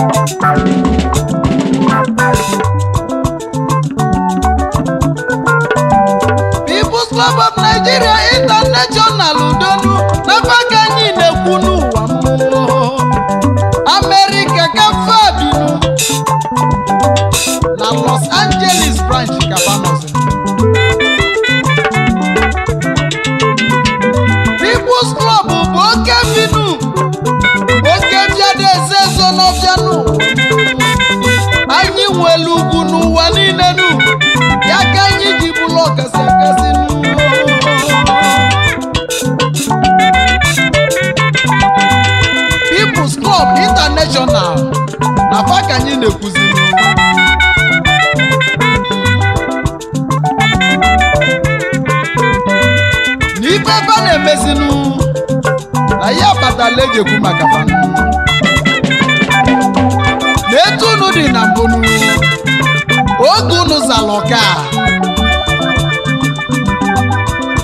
People's Club of Nigeria International Udonu emezinu na ya bata eji ekwu maka fanụ na etu unu dị na mbụnu oge unu zala ọka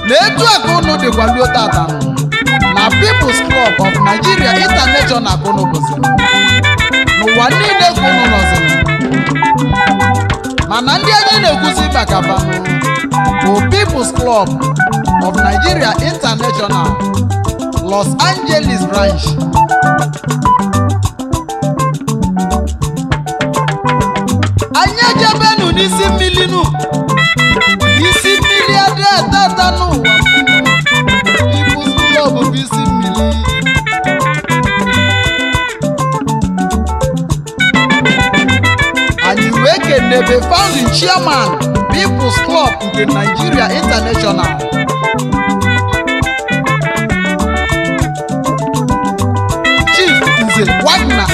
na etu a ka unu dịkwa luo tata na People's Club of Nigeria International ka unu gosiri n'ụwa niile ka unu nọziri mana ndị anyị na-ekwuzi maka fanụ bụ People's Club of Nigeria International, Los Angeles branch. anyị ejebenu n'isi mmiri nụ isi mmiri adịghị ata ata n'ụwa ibu ụlọ ọbụbụ isi founding chairman People's Club the Nigeria International chief nze nwanna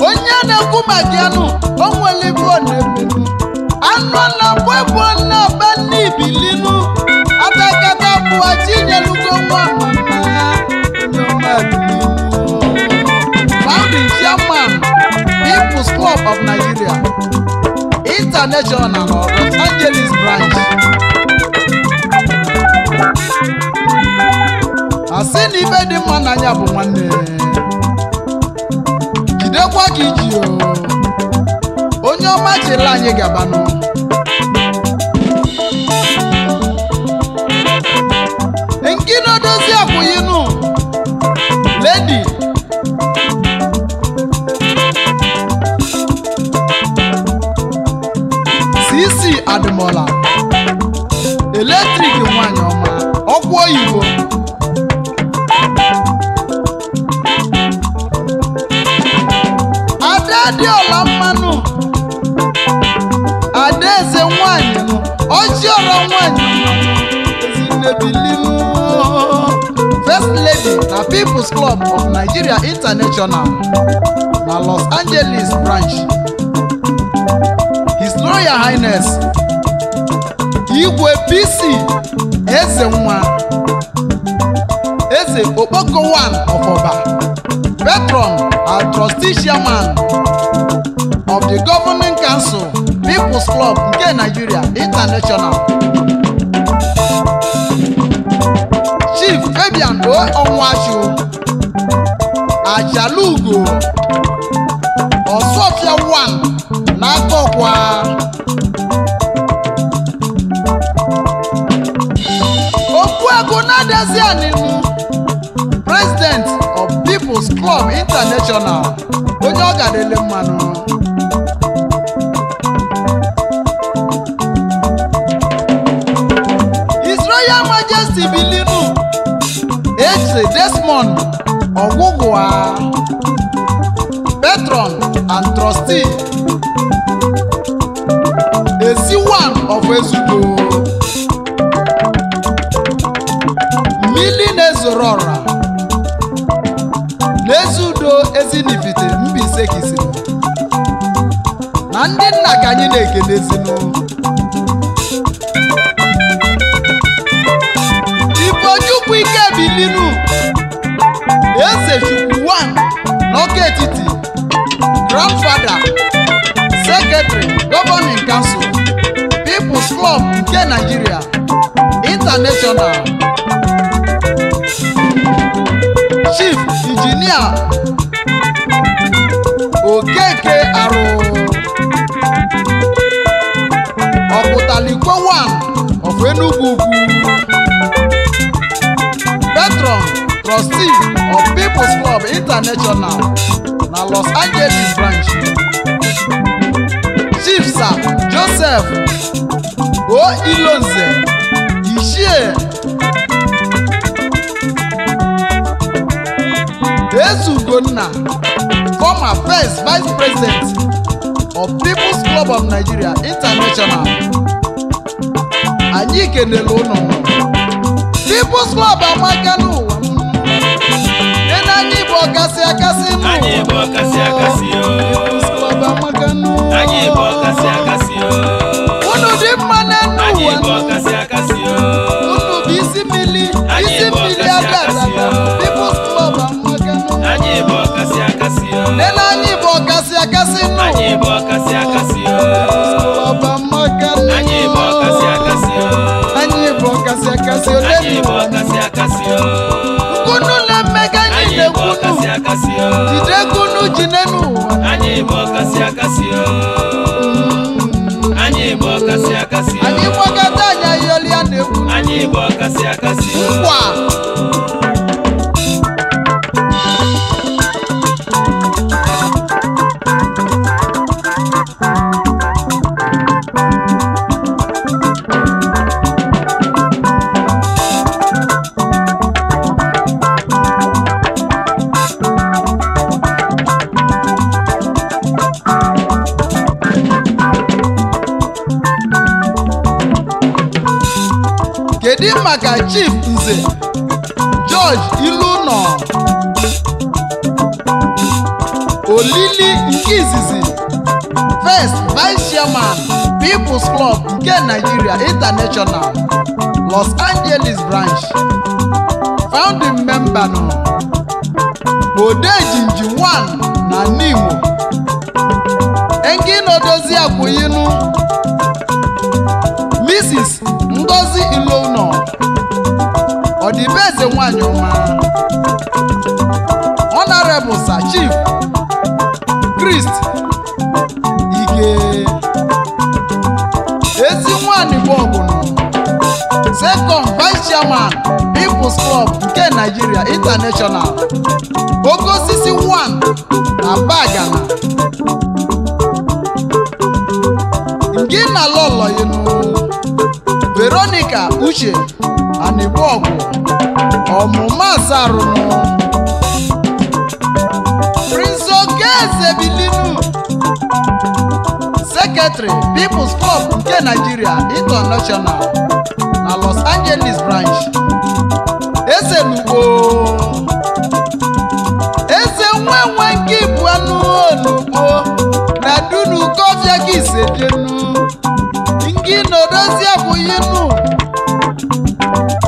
onye na-ekwu maka anụ o nwere ibu ọ na-emegbu anụ na kwebu na be n'ibilinu adakata bụwa chinyelugo nwa mama ya ndị Lions Club of Nigeria International Los Angeles branch. asị na ibe dị mma n'anya bụ nwanne jidekwa gị ji onye ọma chịrị anyị gabanụ nkinodozi akwụyinụ ledi adịmọla eletrik nwanyị ọma ọkwụ oyibo adadịọla mmanụ adaeze nwanyị nụ ọjịọrọ nwanyị ezinnebilinu first lady na people's club of nigeria international na los angeles branch his royal highness igwe pc eze nwa eze okpoko 1 ọkọba patron and trustee chairman of the governing council people's club nke nigeria international chief fabian o Ajalu Ugo. Asia nínú president of People's Club International onye ọ gara His Royal Majesty Bilinu Eze Desmond Ogwugwa patron and trustee Ezi one of Ezugo. a na n'ezi udo ise Mbaise si na ndị nna ka anyị na-ekenezinu Ibochukwu ike bilinu eze chukwu wan n'ọkụ etiti grandfada sekretari gọvanin kansụl People's Club nke Nigeria International chief engineer Okeke Aro Ọ̀pụ̀talikwe one of Enugu patron trustee of People's Club International na Los Angeles branch chief sir Joseph Oilonze Ichie Ezu Ugonna, former first vice president of People's Club of Nigeria International. Anyị kenele ụlọ People's Club amaka n'ụwa nne na anyị bụ ọkasị akasị n'ụwa People's Club amaka n'ụwa anyị bụ ọkasị akasị ooo akasi nù. Anyị bụ ọkasi akasi ooo. Ọba mmaka nù. Anyị bụ ọkasi akasi ooo. Anyị bụ ọkasi akasi ooo. Anyị bụ ọkasi akasi ooo. Nkunu na mmega anyị na ekwunu. Anyị bụ ọkasi akasi ooo. Jide kunu jinenu. Anyị bụ ọkasi akasi ooo. Anyị bụ ọkasi akasi ooo. Anyị gbagada anya yọlịa na egwu. Anyị bụ ọkasi akasi ooo. nke Nigeria International Los Angeles branch founding member nọ Odejinji 1 na Nimo Engin Odozi Akụyinu Mrs. Ngozi Ilona Odibese nwanyị ọma Honorable Sir Chief chairman People's Club nke Nigeria International oke osisi 1 na Mbagana Ngina Loloyinu Veronica Uche Anibogwu ọmụma zarụnụ Prince Ogeze Bilinu Secretary People's Club nke Nigeria International na los angeles branch ese ezenugo ese nwa nwa nke ibu anụ olugbo na dunu kọfịa gị isedenu nke n'odozi abụghị nu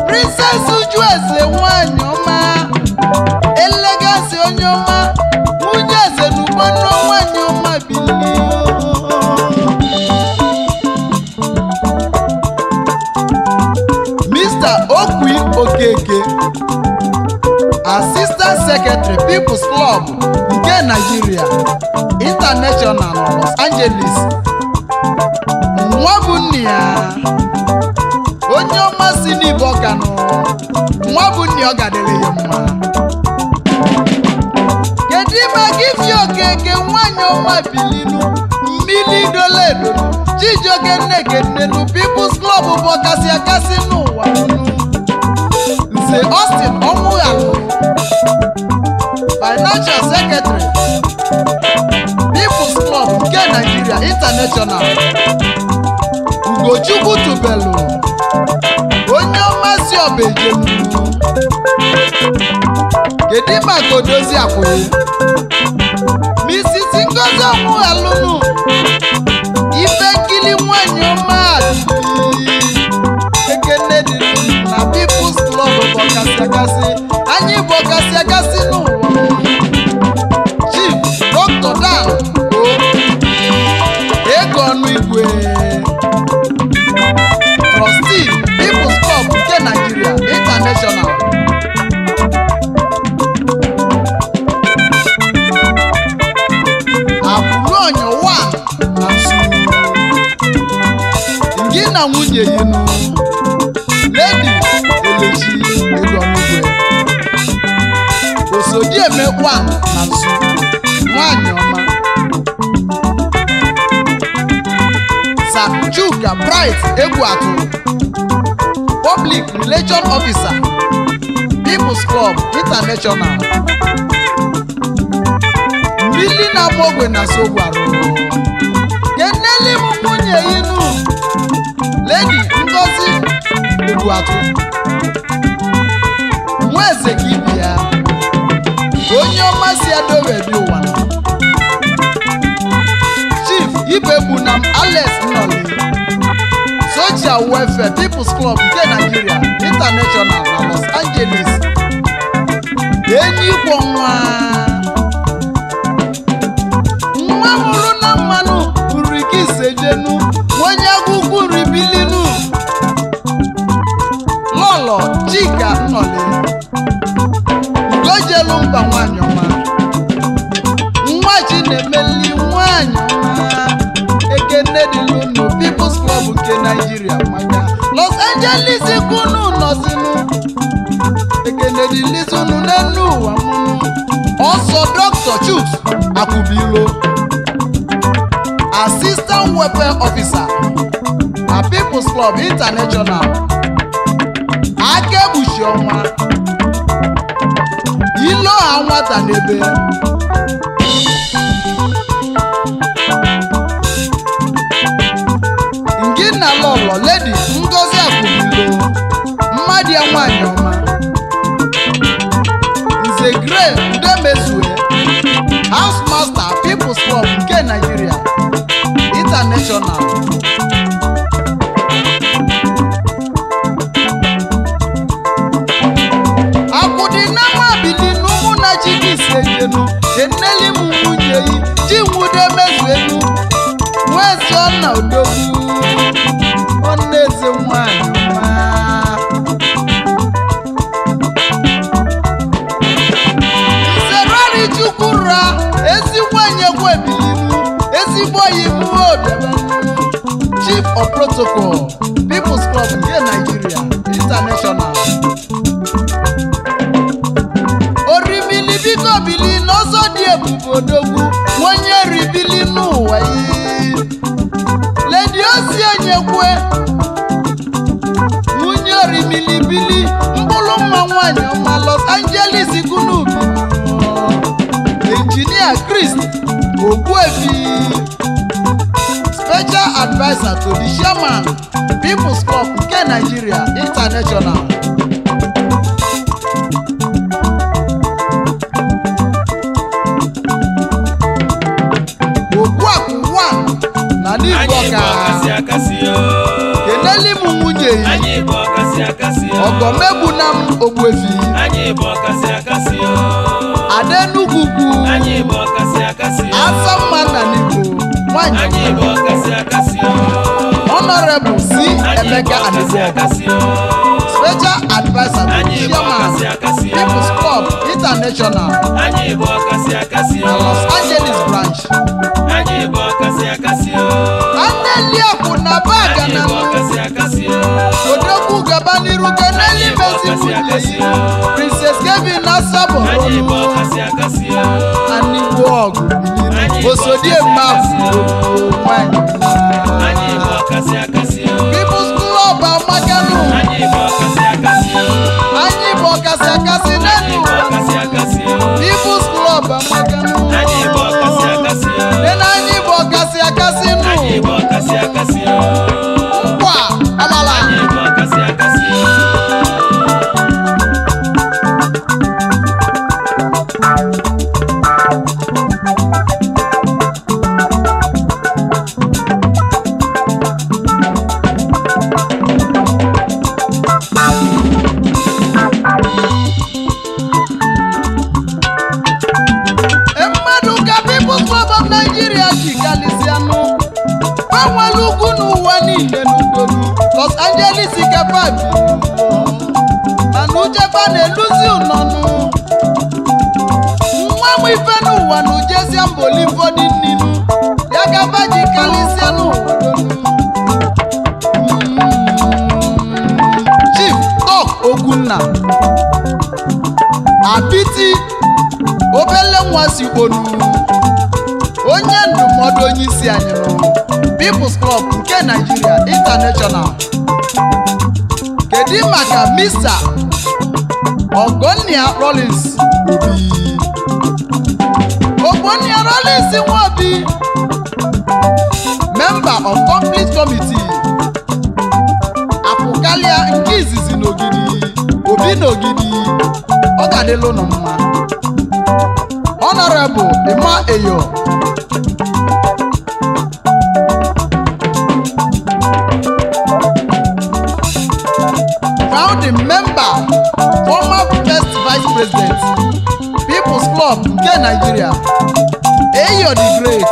princess uju eze nwanyị sekretịrị People's Club nke Nigeria International Los Angeles nwa bụ nne ya onye ọma si n'ibe ọganụ nwa bụ nne ọ gadịrị ya mma kedu ibe gị okeke nwanyị ọma bilinu mmiri dole edo Chijioke Nnekennenu People's Club bụ ọkasị akasị n'ụwa nse Austin ọnwụghalụ financial secretary people's club nke nigeria international ugochukwu tubelu onye ọmasị ọba ejemuru kedu maka akwụghị mrs ngozi ọmụghalụnụ ife nkili nwanyị ọma ekene dị na people's club bọkasịakasị anyị bọkasịa na nwunye yi nụ ledi elechi ego ọnụgwe osodi emekwa na nso nwanyị ọma sa chuka bright egwu atụrụ public relation officer people's club international mmiri na-ama na sogwarụ keneli m nwunye inu Lady Ngozi Egbuatu nwa eze ka ibe ya onye ọma si ya dị ụwa Chief Ibegbu na Alex Nnọli Soja Welfare People's Club nke Nigeria International na Los Angeles enyi kwọ nwa nwa mụrụ na mmanụ ruru ike ise jenu ji ga-anọli ugojelu mba nwanyị ọma nwa ji na-emeli nwanyị ọma ekene dịlụnụ People's Club nke Nigeria maka Los Angeles kunu nọzinụ ekene dịlizunu n'elu ụwa mụnụ ọsọ Dr. Chuks Akụbilo Assistant Welfare Officer A People's Club International aka egbuchi ọnwa ilo ha nwata n'ebe na lọlọ ledi ngozi akụmilo mmadụ ya nwanyị ọma nze gre udemezue haus master people's club nke Nigeria international ndị emezu elu nwa ezi ọna odogwu ọna eze nwanyị nserori chief of protocol people's club nke nigeria international orimili biko bili n'ọzọ dị ebube odogwu onye nwunye orimilibili mkpụrụ mma nwanyị ọma Los Angeles gunubu injinia Chris Ogbuefi special advisor to the chairman People's Cup nke Nigeria International Gọmegbu Nnamdi Ogbuefi anyị bụ ọkasị akasị Adenugwu anyị bụ ọkasị akasị Afamma Nnanikwo nwanyị anyị bụ ọkasị akasị Honorable si Emeka Adegbugbu Special adviser to Chairman People's Club International na Los Angeles branch ndio kuna baga na odoku gabani ruke neli mesi kuli princess kevin nasabo ani wọọgù osodie mma fún ọmọ ẹ. International kedu maka Mr. Ogonia Rollins Obi Ogonia Rollins Nwobi member of complete committee apụkalịa nke izizi n'ogidi obi n'ogidi ọ ga-adịlụ ụnụ honorable Emma Eyo Nigeria Eyo the Great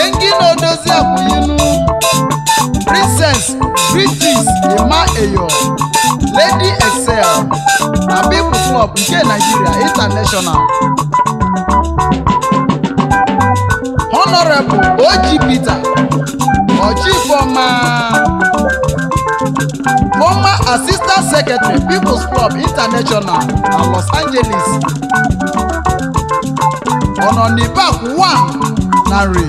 Engin Odoziakuyinu Princess British Emma Eyo Lady Excel na People Club nke Nigeria International Honorable Oji Peter Oji Ọchịfọma Former Assistant General Secretary People's Club International na Los Angeles ọ nọ n'ibak 1 narị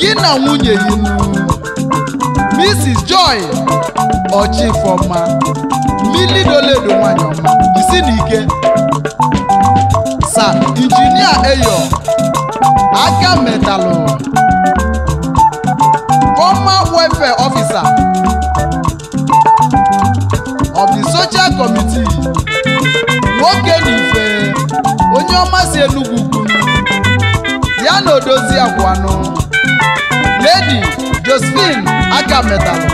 gị na nwunye yi Mrs. Joy Ochi Ochifoma ma nwanyị ọma jisi n'ike sa injinia eyo Aga metalụ former welfare officer onye ọma si Enugu ukwu ya na odozi akwanụ Lady Josephine aka metalụ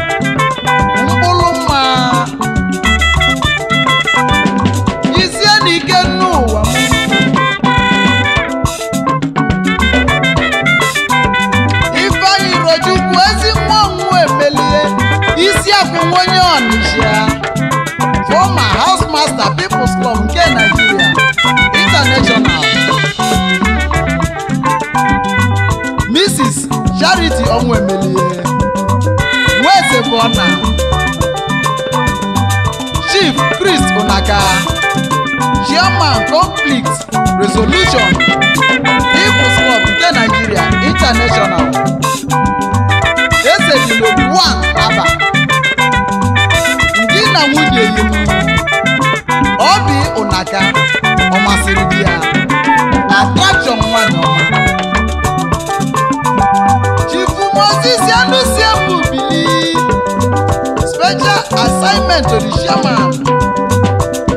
charity ọnwụ emelie weze bụ ọna chief chris onaka chairman conflict resolution people's club nke nigeria international esedilo one aba gị na nwunye yi obi ụnaka ọ masịrị gị ya attraction nwanyị ọma Justice Anusi Ebubili Special Assignment to the Chairman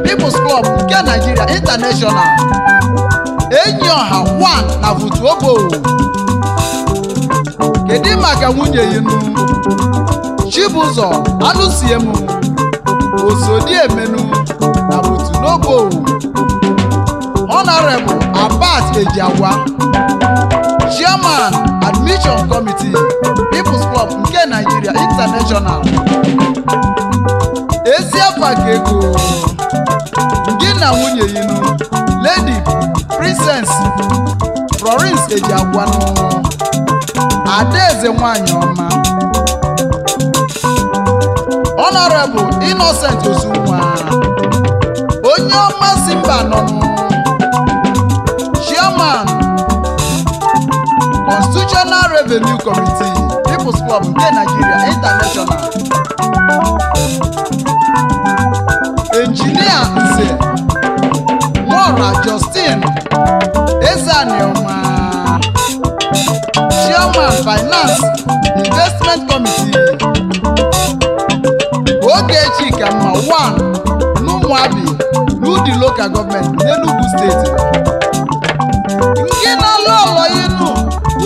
People's Club nke Nigeria International ha 1 na obo, kedu maka nwunye yinu Chibụzọ Anụsiemu Osodiemenu na Vutunobo Honorable Abbas Ejiagwa Chairman Vision Committee People's Club nke Nigeria International Eziafa Kego gị na nwunye yinu Lady Princess Florence Ejiagwanụ Adaeze nwanyị ọma Honorable Innocent Osunwa onye ọma si mba nọnụ New Committee, People's Club nke Nigeria International. Engineer Nze Nwora Justin Ezanioma Chairman Finance Investment Committee Ogechi Kama 1 N'Ụmụabi n'Udi Local Government n'Enugu state. nke na-alụ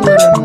嗯。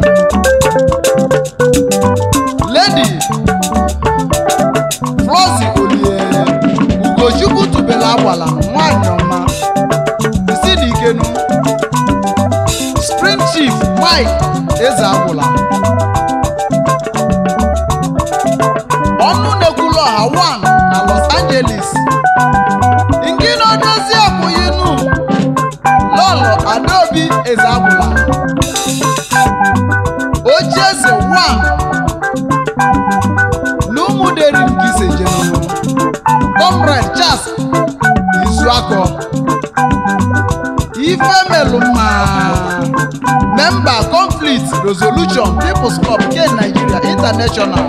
Resolution People's Club nke Nigeria International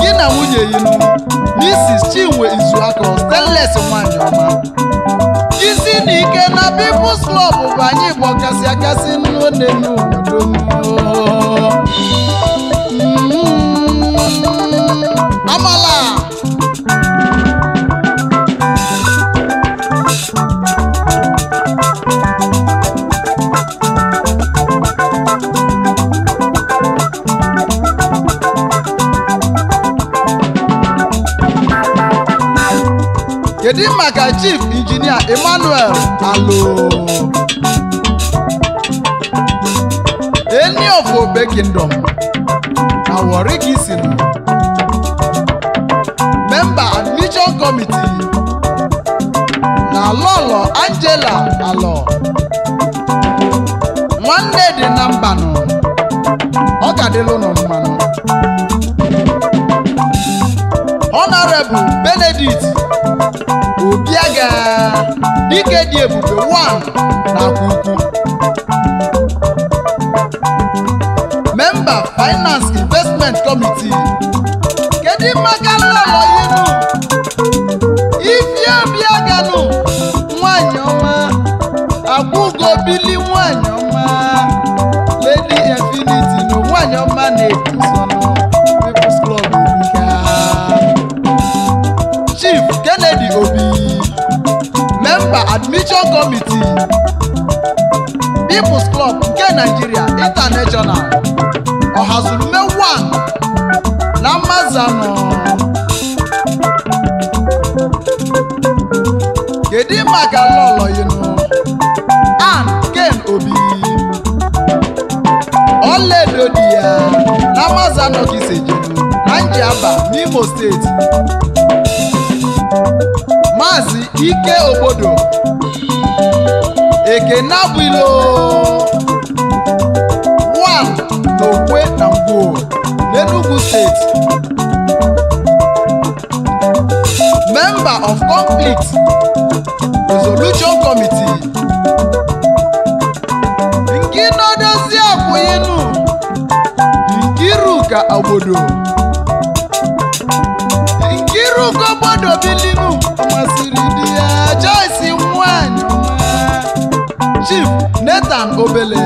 gị na nwunye yinu Mrs. Chinwe Izuaka Stainless nwanyị ọma isi na ike na People's Club bụ anyị Igbo gasị agasị nnu na-enye obodo kedu maka chief injinia Emmanuel Alo Eni of Obe Kingdom na isi Gizin memba admission committee na Lolo Angela alọ nwanne dị na mbanụ ọ ka dịlụ nọ honorable benedict obiaga dike dị ebube 1 nakwa ukwu finance investment committee kedu maka nlalọyinu ifie obiaganụ nwanyị ọma agwụgo bili nwanyị lady infinity na nwanyị ọma Election Committee People's Club nke Nigeria International Ọhazurume 1 na Mazano kedu maka lọlọinu Ann Ken Obi ọlaedo dị ya na Mazano Kisejenu na Njiaba n'Imo steeti Maazị Ike Obodo Eke Ekene Agbilo one n'Okwe na Ngwo n'Enugu State Member of Conflict Resolution Committee Nkino Dozie Akwụyenu Nkiruka Agbodo Nkiruka Gbadobelinu obele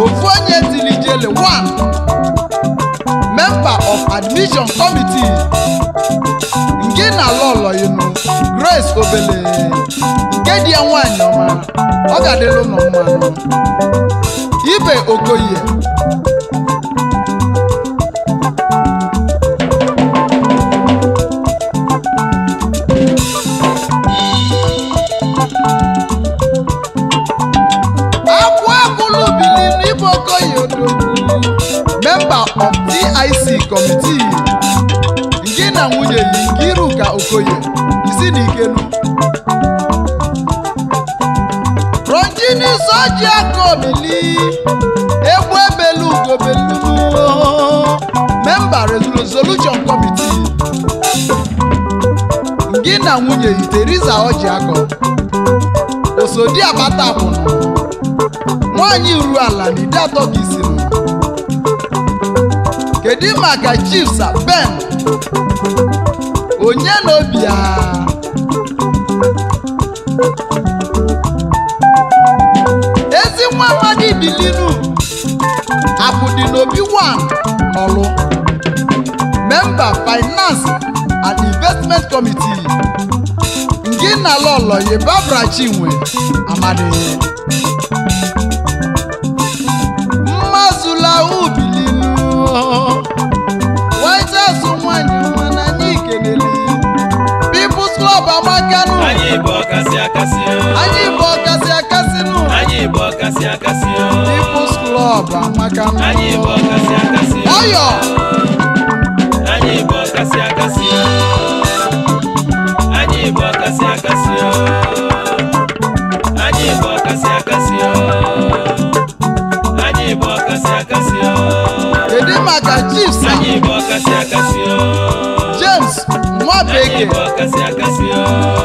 ofu onye tiri jele one member of admission committee nke na lọlọ inu grace obele nke di ya nwanyị ọma ọ ga-adịlụ ụlọ ibe okoye IC committee ngị na nwunye yi ka Okoye isi na Ikenu Ronjini Sojiaka Omili egwu ebelu ugobelu memba resolution committee ngị na nwunye yi Teresa Ojiako osodi agbata akwụna nwaanyị ruru ala na ide atọ ka n'ụwa kedu maka chiefs ben onye na obi ya ezi nwa amadi bilinu abụdị n'obi one n'ọlụ member finance and investment committee nke na lọlọ yebabra chinwe amadi kasi akasi o. Anyị Igbo kasi akasi nụ. Anyị Igbo kasi akasi o. People's Club amaka nụ. Anyị Igbo kasi akasi o. Ọyọ. Anyị Igbo kasi akasi o. Anyị Igbo kasi akasi o. Anyị Igbo kasi akasi o. Anyị Igbo kasi akasi o. Kedu maka chiefs a? Anyị Igbo kasi akasi o. James Nwabeke. Anyị Igbo kasi akasi o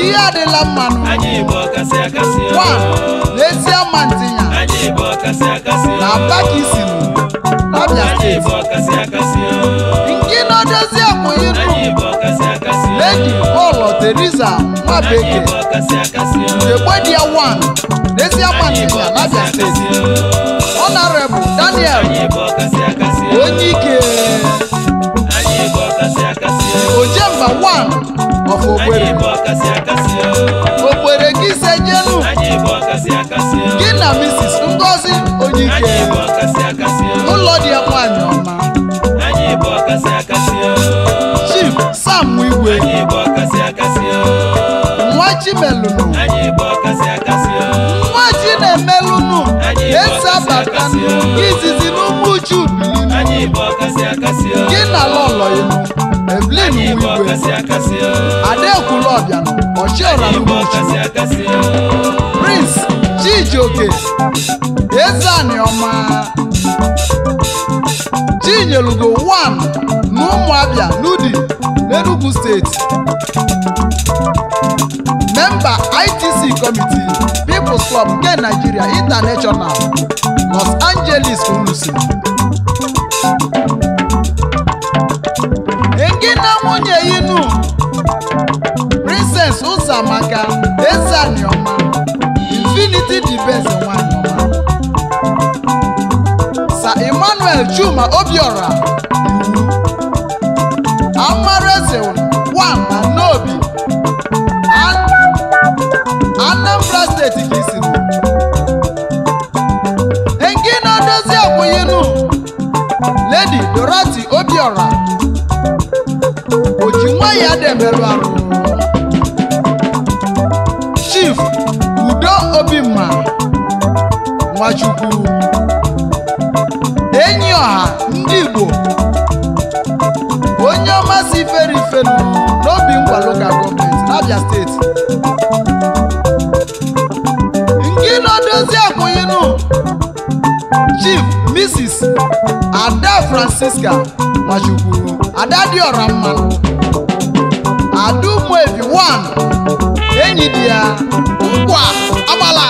ihe adịla mma nwa n'ezi ama ntinya na aba ka isi n'abịa steeti nke na-edozi amụghị nụ lady paul teresa nwa bekee njegbediya 1 n'ezi ama ntinya na abịa steeti honorable daniel Onyike. Oh. Ojemba one of Okwere. Oh. Okwere gị ise oh. Gị na Mrs. Ngozi Onyike. Ụlọ dị nwanyị ọma. Chief Sam Igwe. Nwa Chimelụnụ. Nwa Chinemelụnụ. Esi abata n'izizi. no mucho ani boga se akasia kina lolo yi e blame ni boga se akasia ade ku lo bia no o se ora ni boga se akasia prince jijoke eza ni oma jinye lugo one mu mu abia nudi lenugu state member itc committee people's club get nigeria international Los Angeles kwurusi gị na nwunye inu. Princess Uzamaka, Ụzọamaka Ezeaniọma Infinity the best nwanyị ọma Sir Emmanuel Chuma Obiora Amareze Nwamba Nnobi Anambra Kisi. Lady Dorothy Obiora Ojinwaya Dembelu Aru Chief Udo Obima Nwachukwu Enyi ọha ndị Igbo onye ọma si ifere ife n'obi ngwa local government, n'Abia State. Nkiru Odozie Akwụnyinu Chief Mrs. Ada Francisca Majukwuru Adadiora Mmanụ Adaumuevi 1 enyi di ya nkwa agbala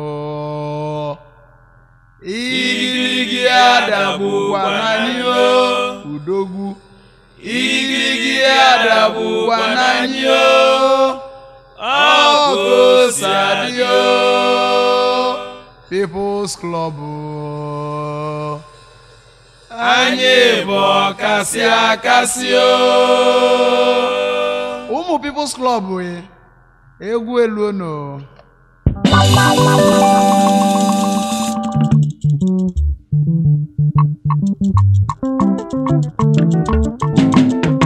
adabu wananyio udogu igigi adabu wananyio ọkụsadio peoples club anyị bụ ọkasị akasị ụmụ peoples club egwu elu no. Thank you.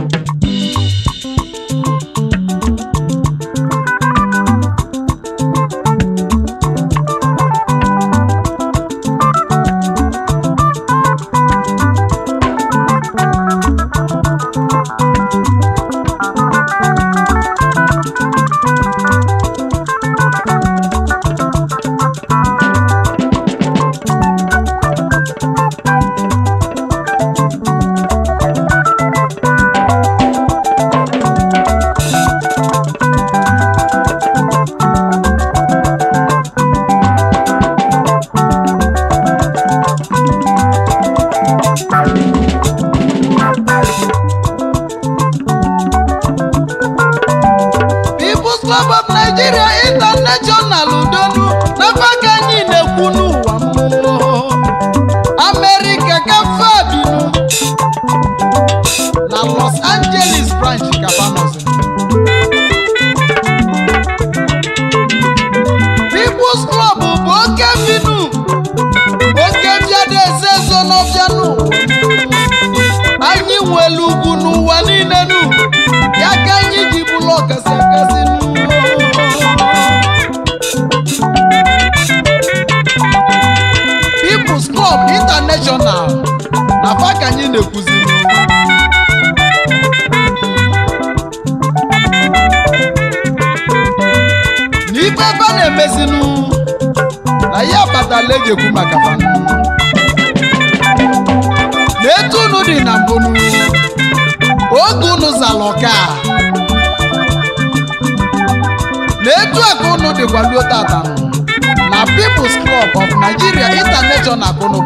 n'ọbịanụ anyị nwere ugwu n'ụwa niile nụ ya ka anyị ji bụrụ ọkasị akasị People's Club International na paka anyị na-ekwuzi n'ife ebe a na-emezinụ na ya abatala eji ekwu maka fa etu unu dị na mbonu oge unu zala ọka na etu a ka unu dịkwa ruo tata na People's Club of Nigeria International ka unu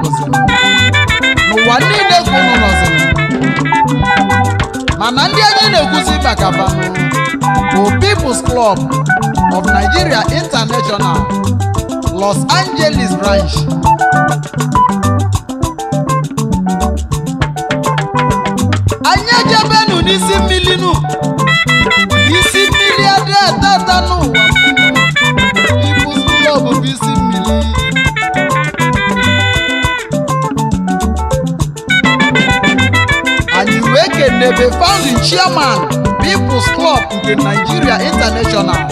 n'ụwa niile ka unu mana ndị anyị na-ekwuzi maka bụ People's Club of Nigeria International Los Angeles branch chairman People's Club nke Nigeria International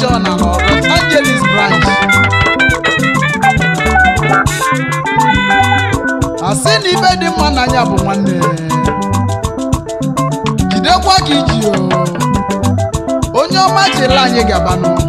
John Amoro Angeles branch asị n'ibe dị mma n'anya bụ nwanne eh. jidekwa gị ji oh. onye ọma chịrị anyị gabanụ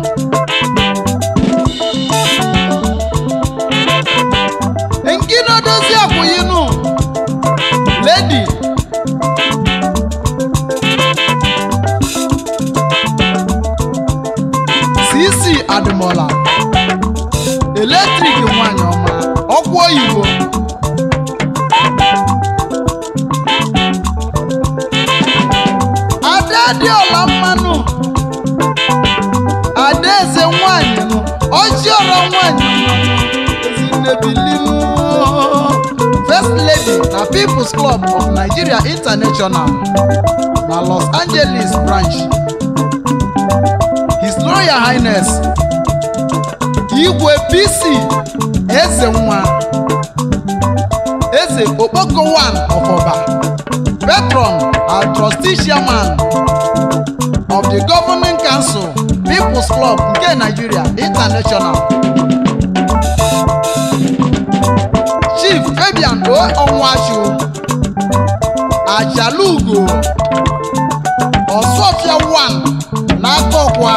First Lady na People's Club of Nigeria International na Los Angeles branch His Royal Highness Igwe pc Eze Nwa Eze Okpoko One of Oba Patron and Trustee Chairman of the Governing Council People's Club nke Nigeria International Chief Ebiando Onwuachu Ajalugo Osofia 1 n'Atọkwa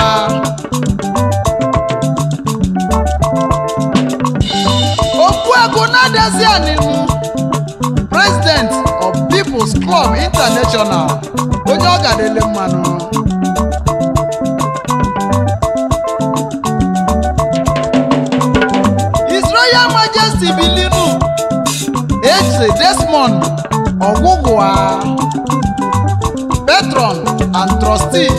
okwu ego na-adịghịzị anịnụ President of People's Club International onye ọ dele ele mmanụ His Royal Majesty Bilinu Eze Desmond Ọgwụgwụ Patron and Trustee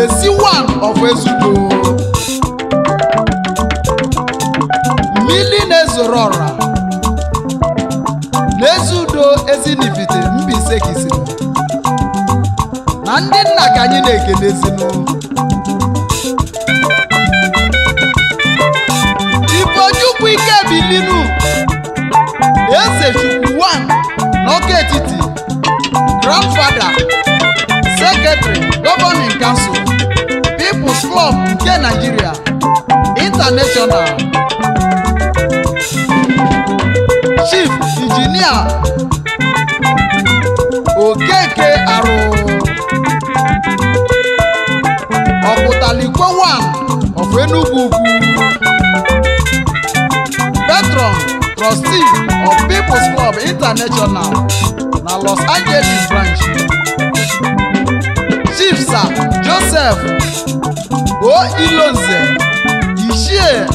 Ezi1 of Ezugo na-ezoro ọra na ezinivite na ndị nna ka na bilinu eze chukwu one n'ọka etiti Grandfather Secretary Governing kansụl People's Club nke Nigeria International Chief Engineer Okeke aro Ọkụtalikwe one of Enugu Ugwu Patron trustee of People's Club International na Los Angeles branch. Chief Sir Joseph Oilonze Ichie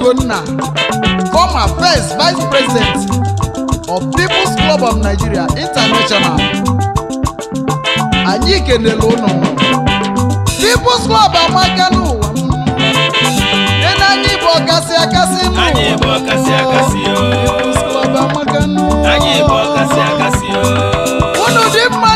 Gonna, former first vice president of People's Club of Nigeria International. Anyị kenere ụnụ People's Club amaka n'ụwa. bụ ọkasị anyị bụ ọkasị akasị unu dị mma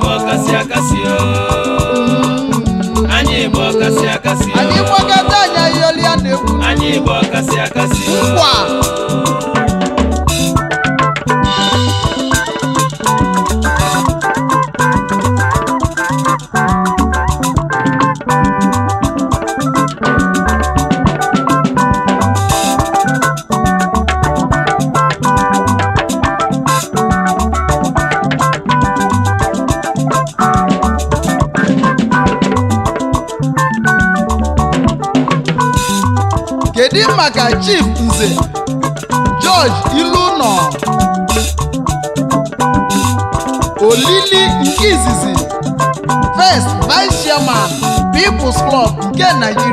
igbo kasị akasị anyị yoli kasị akasị anyị igbo kasị akasị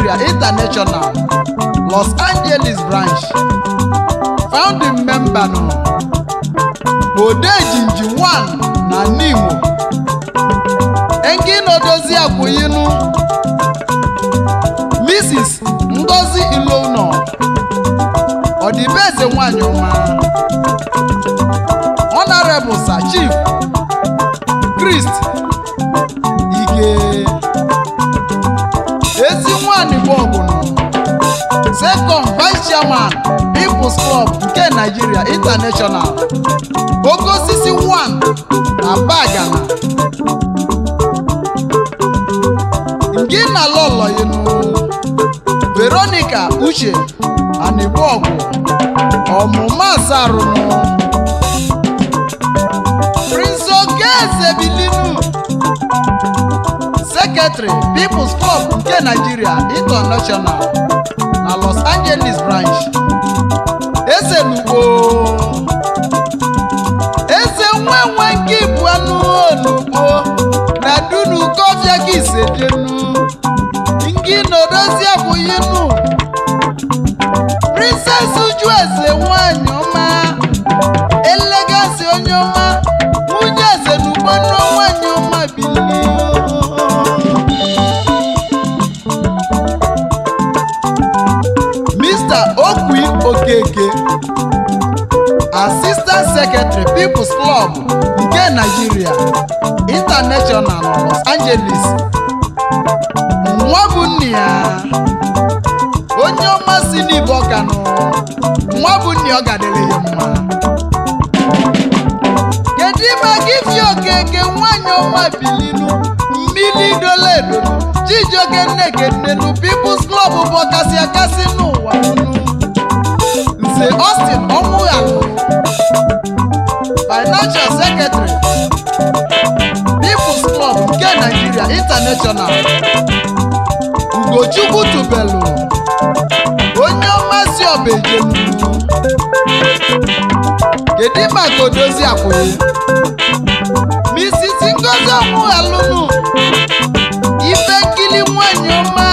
Nigeria International Los Angeles branch founding member nọ Odejinji 1 na Nimo Engino Dozie Akwụyinu Mrs. Ngozi Ilona Odibeze nwanyị ọma chairman People's Club nke Nigeria International oke osisi 1 na Bagana ngị na lọlọinu Veronica Uche Anịbọgwụ ọmụmasarụnụ Prince Okezebilinu Secretary People's Club nke Nigeria International Los Angeles branch Ese eze nwa nwa nke ibu anụ onugbo na dunu kọfịa gị isedenu ngị nọdozie abụghị nu Princess Uju eze nwanyị sekretịrị People's Club nke Nigeria International na Los Angeles nwa bụ nne ya onye ọma si n'ibe ọganụ nwa bụ nne ọ gadịrị ya mma kedu ime gị oke okeke nwanyị ọma bilinu mmiri dola edo Chijioke Nnekennelu People's Club bụ ọkasị akasị n'ụwa Nze Austin ọnwụ ghalụ financial secretary people's club nke nigeria international ugochukwu tubelu onye mmasị ọba ejemuru kedu maka odozi akwụghị mrs ngozi ọmụghalụnụ ife nkili nwanyị ọma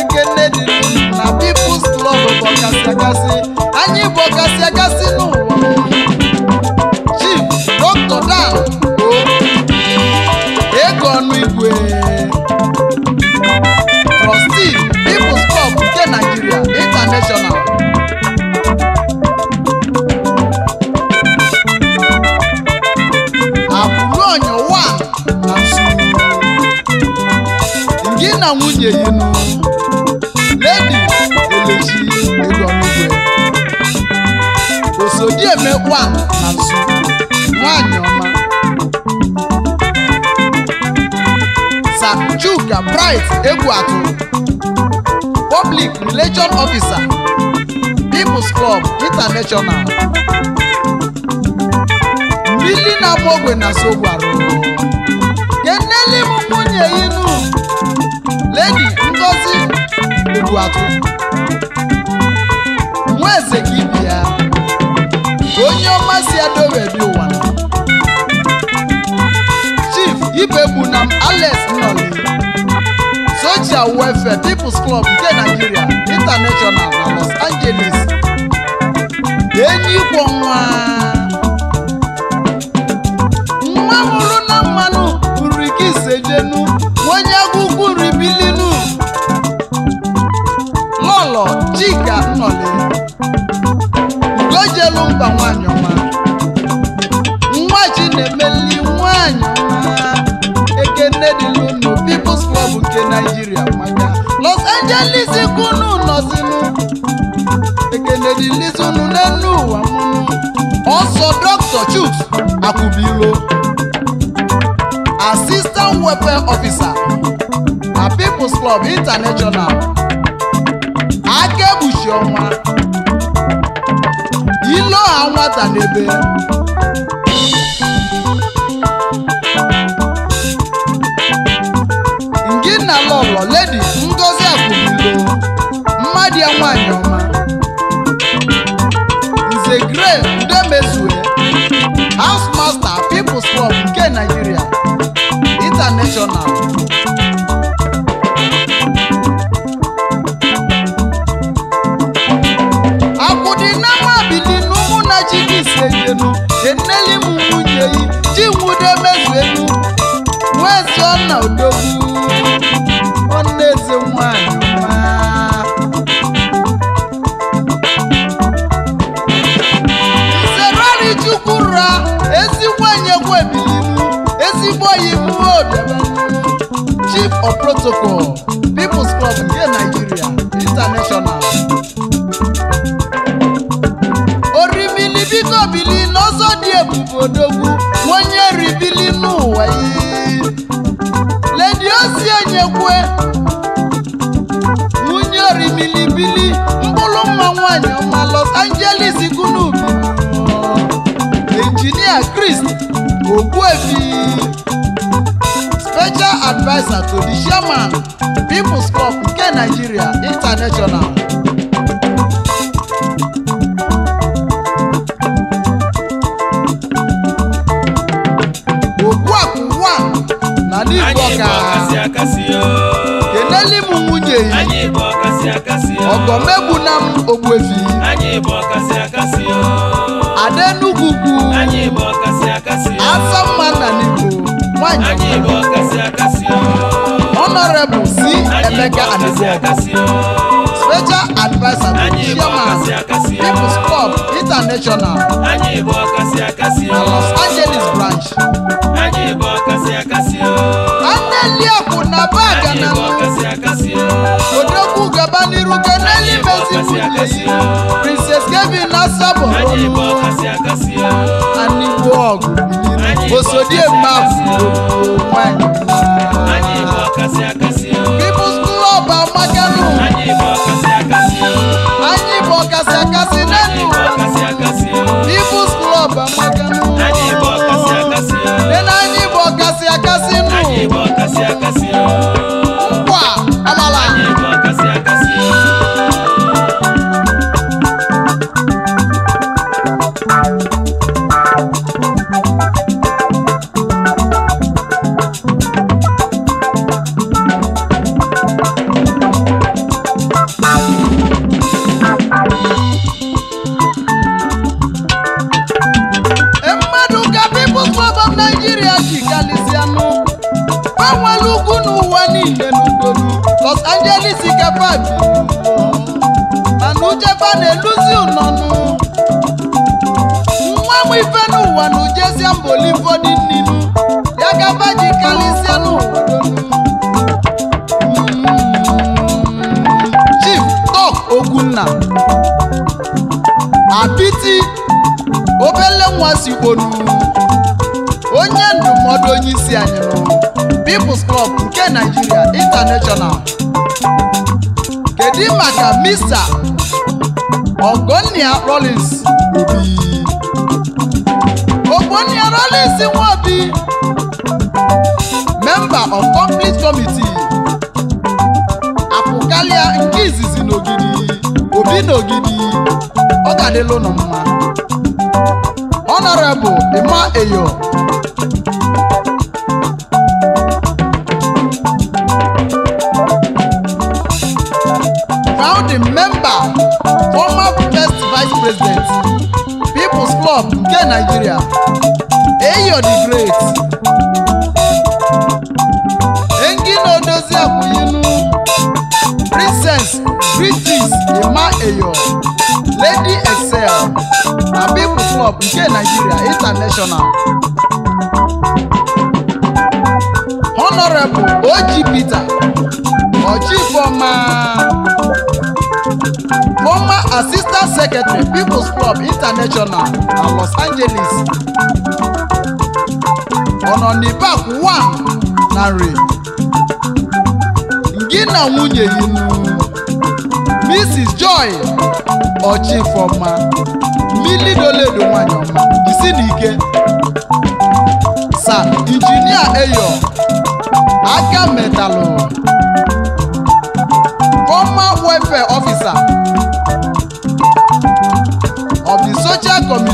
ekene dị na people's club bọkasị akasị na nwunye yinu ledi eleji egonigwe osodieme wan na nso nwanyị ọma sa chuka bright egwu atụ public relation officer people's club international mbili na-ama ogwe na sogwarụ keneli m nwunye inu Lady Ngozi Egbuatu nwa eze ka ya onye ọma si dị ụwa Chief Ibe bụ Alex Nnọli social Welfare People's Club nke Nigeria International na Los Angeles enyi ịkwọ nwa nwa na mmanụ ruru ike ise jenu nọmba nwanyị ọma nwa na-emeli nwanyị ọma ekene dịlụnụ People's Club nke Nigeria manya Los Angeles kunu nọzinụ ekene dịlizunụ n'elu ụwa ọsọ Dr. Chuks Akụbilo Assistant Weapon Officer na People's Club International nwata n'ebe nke na lọlọ ledi ngozi akwụbilo mmadụ ya nwanyị ọma nze gre udemezue house master people's club nke Nigeria international mmeri chinwude mezu egwu wezi ọna odogwu ọna eze nwanyị nserori chukwura ezigbo enyekwu ebilinu ezigbo oyibo odebenu chief of protocol people's club nke nigeria international orimili biko bili n'ọsọ dị ebube odogwu ekwe nwunye orimilibili mkpụrụ mma nwanyị ọma Los Angeles gunubi injinia Chris Ogbuefi special adviser to the chairman People's Club nke Nigeria International Gọmegbu Ogbuefi anyị bụ ọkasị akasị Adenugwu-ukwu anyị bụ ọkasị akasị Asamma Nnanikwo nwanyị anyị bụ ọkasị akasị Honorable C. Emeka Anigbo Special Advisor to Chairman People's Club International na Los Angeles branch andelia kuna baga na odoku gabaniru keneli mesi kule princess kevin asabo aniwo ọgùn osodi ema furo wine. people's club amakanu anyibọ kasi akasi oh. nenu oh. people's club amakanu. Cassiano Ikponu onye ndụmọdụ onye isi anyị People's Club nke Nigeria International kedu maka Mr. Ogonia Rollins Obi Ogonia Rollins Nwobi memba of complete committee apụkalịa nke izizi n'ogidi obi n'ogidi ọ ga-adịlụ ọ̀nàrẹ́bù ìmọ̀ èyọ̀. founding member former first vice president people's club nke nigeria eyo the great engin odozi akwụyinu princess british emma eyo. nke Nigeria International Honorable Oji Peter Ochifoma former Assistant Secretary People's Club International na Los Angeles ọ n'ibak narị gị na nwunye yi Mrs. Joy ọchị ifeọma milidoledo nwanyị ọma isi ike sa injinia eyo aka metalụ former welfare officer of the social nwoke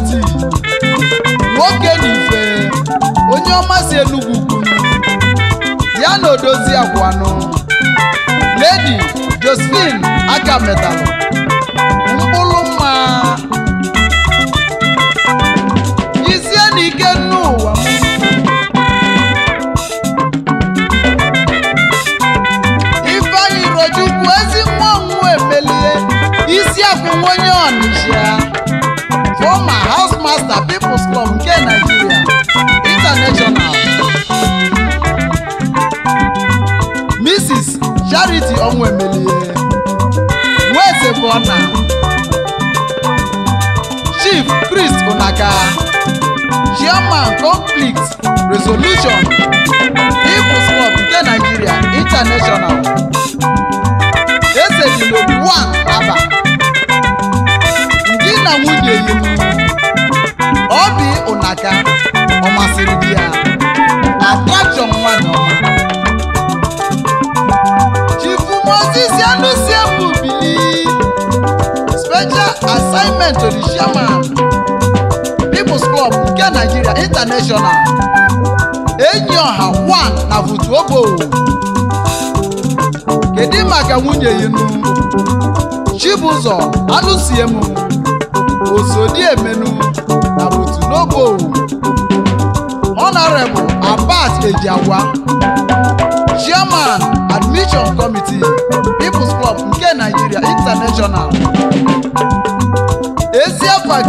na ife onye ọma si enugwu ukwu ya na odozi akwanụ lady josephine aka metalụ Charity ọnwa emelie weze bụ ọna Chief priest Onaga Chairman Conflict Resolution People's Club nke Nigeria International eze dị n'obu one aba gị na nwunye yi obi ụnaga ọ masịrị gị ya attraction nwanyị ọma Moses Yanusie Bubili special assignment to the People's Club nke Nigeria International enyi ọha 1 na Vutuobo kedu maka nwunye yinu chibuzo Alusiemu Osodiemenu na Vutunobo Honorable Abat ejawa Chairman Mission Committee People's Club nke Nigeria International ezi afa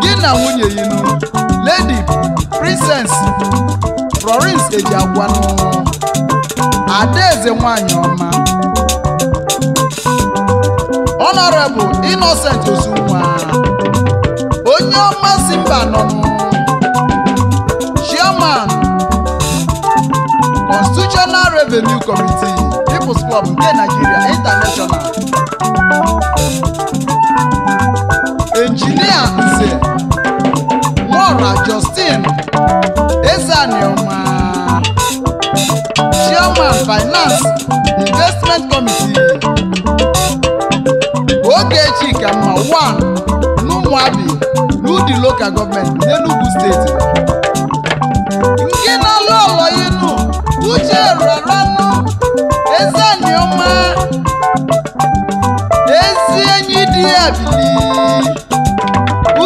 gị na nwunye yinu Lady Princess Florence Ejiagwanụ Adaeze nwanyị ọma Honorable Innocent Ozunwa onye ọma si mba nọ Constitutional Revenue Committee People's Club nke Nigeria International Engineer Nze Mora Justin Ezanioma Chairman Finance Investment Committee Ogechi Kamma 1 n'Ụmụabi n'Udi Local Government n'Enugu Steeti nke na-alụ ọlọ uche rụrụnụ eze ọma ezi enyi dị ya bili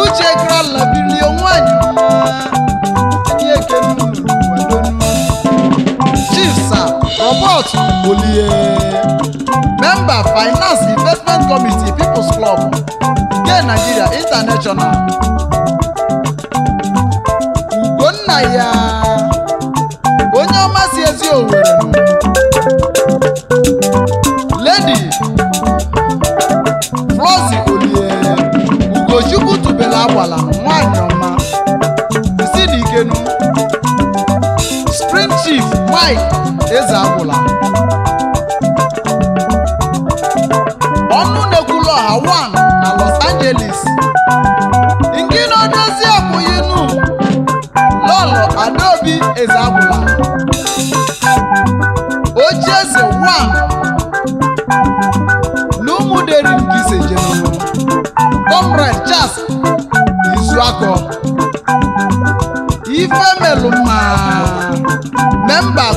uche grala bilie nwanyị ọma anyị ekene unu wadonu chifsa robert olie memba finance investment committee people's club nke nigeria international ugonna ya Tochukwu tụbelu agbala nwanyị ọma isi na ikenu Supreme Chief Mike Eze Agwụla ọnụ na ọha na Los Angeles nke na onye ezi abụghị nu Lolo Adaobi Eze akọ ife melụ ma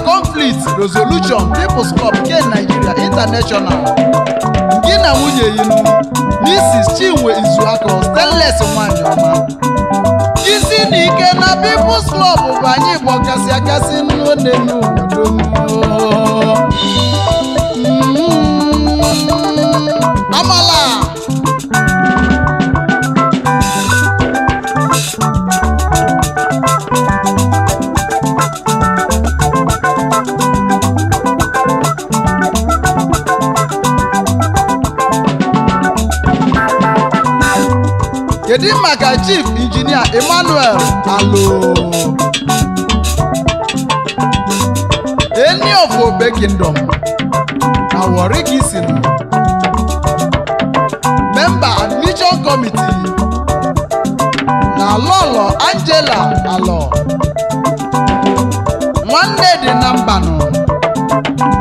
conflict resolution people's club nke Nigeria international gị na nwunye yinu Mrs. Chinwe Izuako stainless nwanyị ọma n'ike na ike na people's club bụ anyị bụ ọkasị akasị nne obodo dị maka chief Inginia Emmanuel Alo eni of Obe Kingdom na memba admission committee na Lolo Angela Alo nwanne dị na mbanụ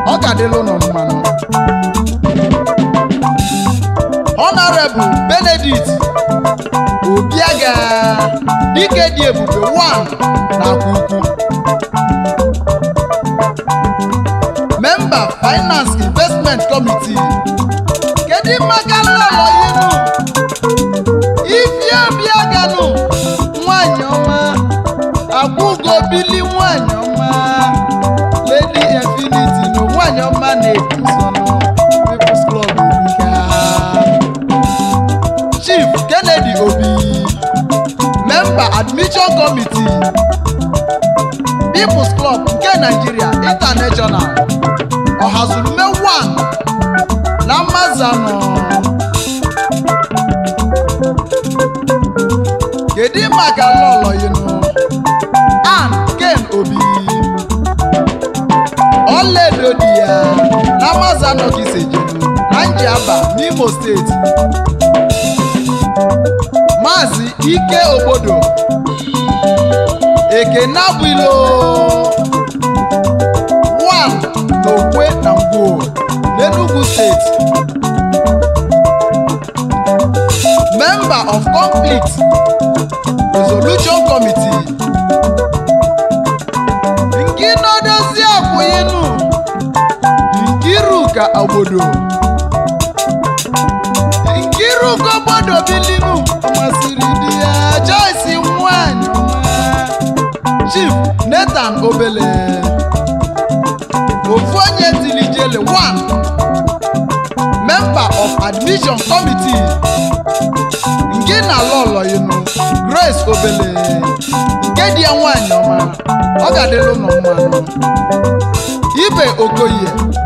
ọ ka dịla ụlọ mmanụ Honorable Benedict dike dị ebube 1 nakwa ukwu memba finance investment committee kedu mmaka nlọlọ ya selekshọn kọmiti People's Club nke Nigeria International Ọhazurume 1 na Mazano kedu maka lọlọinu Ann Ken Obi ọlaedo dị ya na Mazano Kisejenu na njaba n'Imo steeti ike obodo ekene abụilo wan n'okwe na mbụ n'Enugu steeti member of conflict resolution committee nke nọdozi abụghị nụ nke ka obodo obele ofu onye ziri jele one member of admission committee nke na lọlọinu Grace obele nke di ya nwanyị ọma ọ ga adịrị ụlọ mmanụ ibe okoye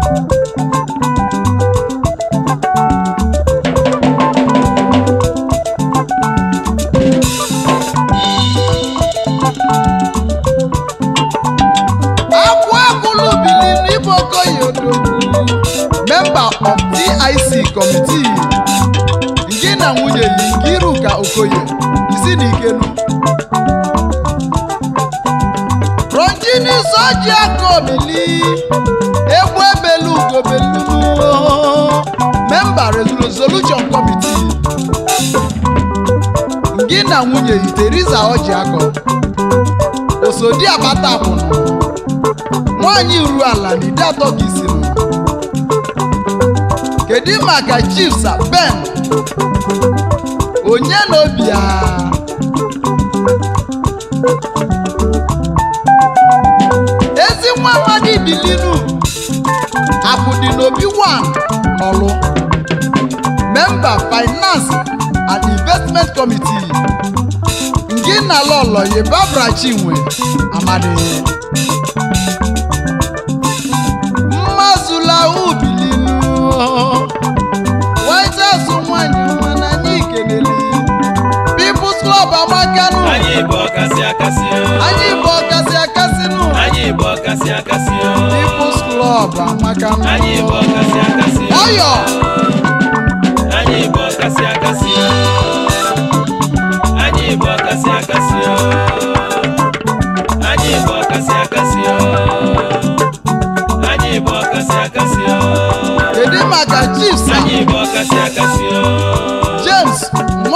IC kọmitii nke na nwunye yi nke Okoye isi na Ikenu Rọjini Soji Akobili Egwu Ebelu Ugobelugo memba resolution kọmitii gị na nwunye yi Teriza Ojiako osodi agbata akwụna nwaanyị ruo ala na ide atọ ka isi kedu maka chiefs Ben onye n'obi ya ezi nwa amadi bilinu abụdị n'obi wan Ọlụ, memba finance and investment committee ngị na lọlọ yebabra chinwe amadi Ajibo kasi akasi o. Ajibo kasi akasi nu. Ajibo kasi akasi o. People's Club amaka nu. Ajibo kasi akasi o. Ọyọ. Ajibo kasi akasi o. Ajibo kasi akasi o. Ajibo kasi akasi o. Ajibo kasi akasi o. Èdè màkà chiefs. Ajibo kasi akasi o. James.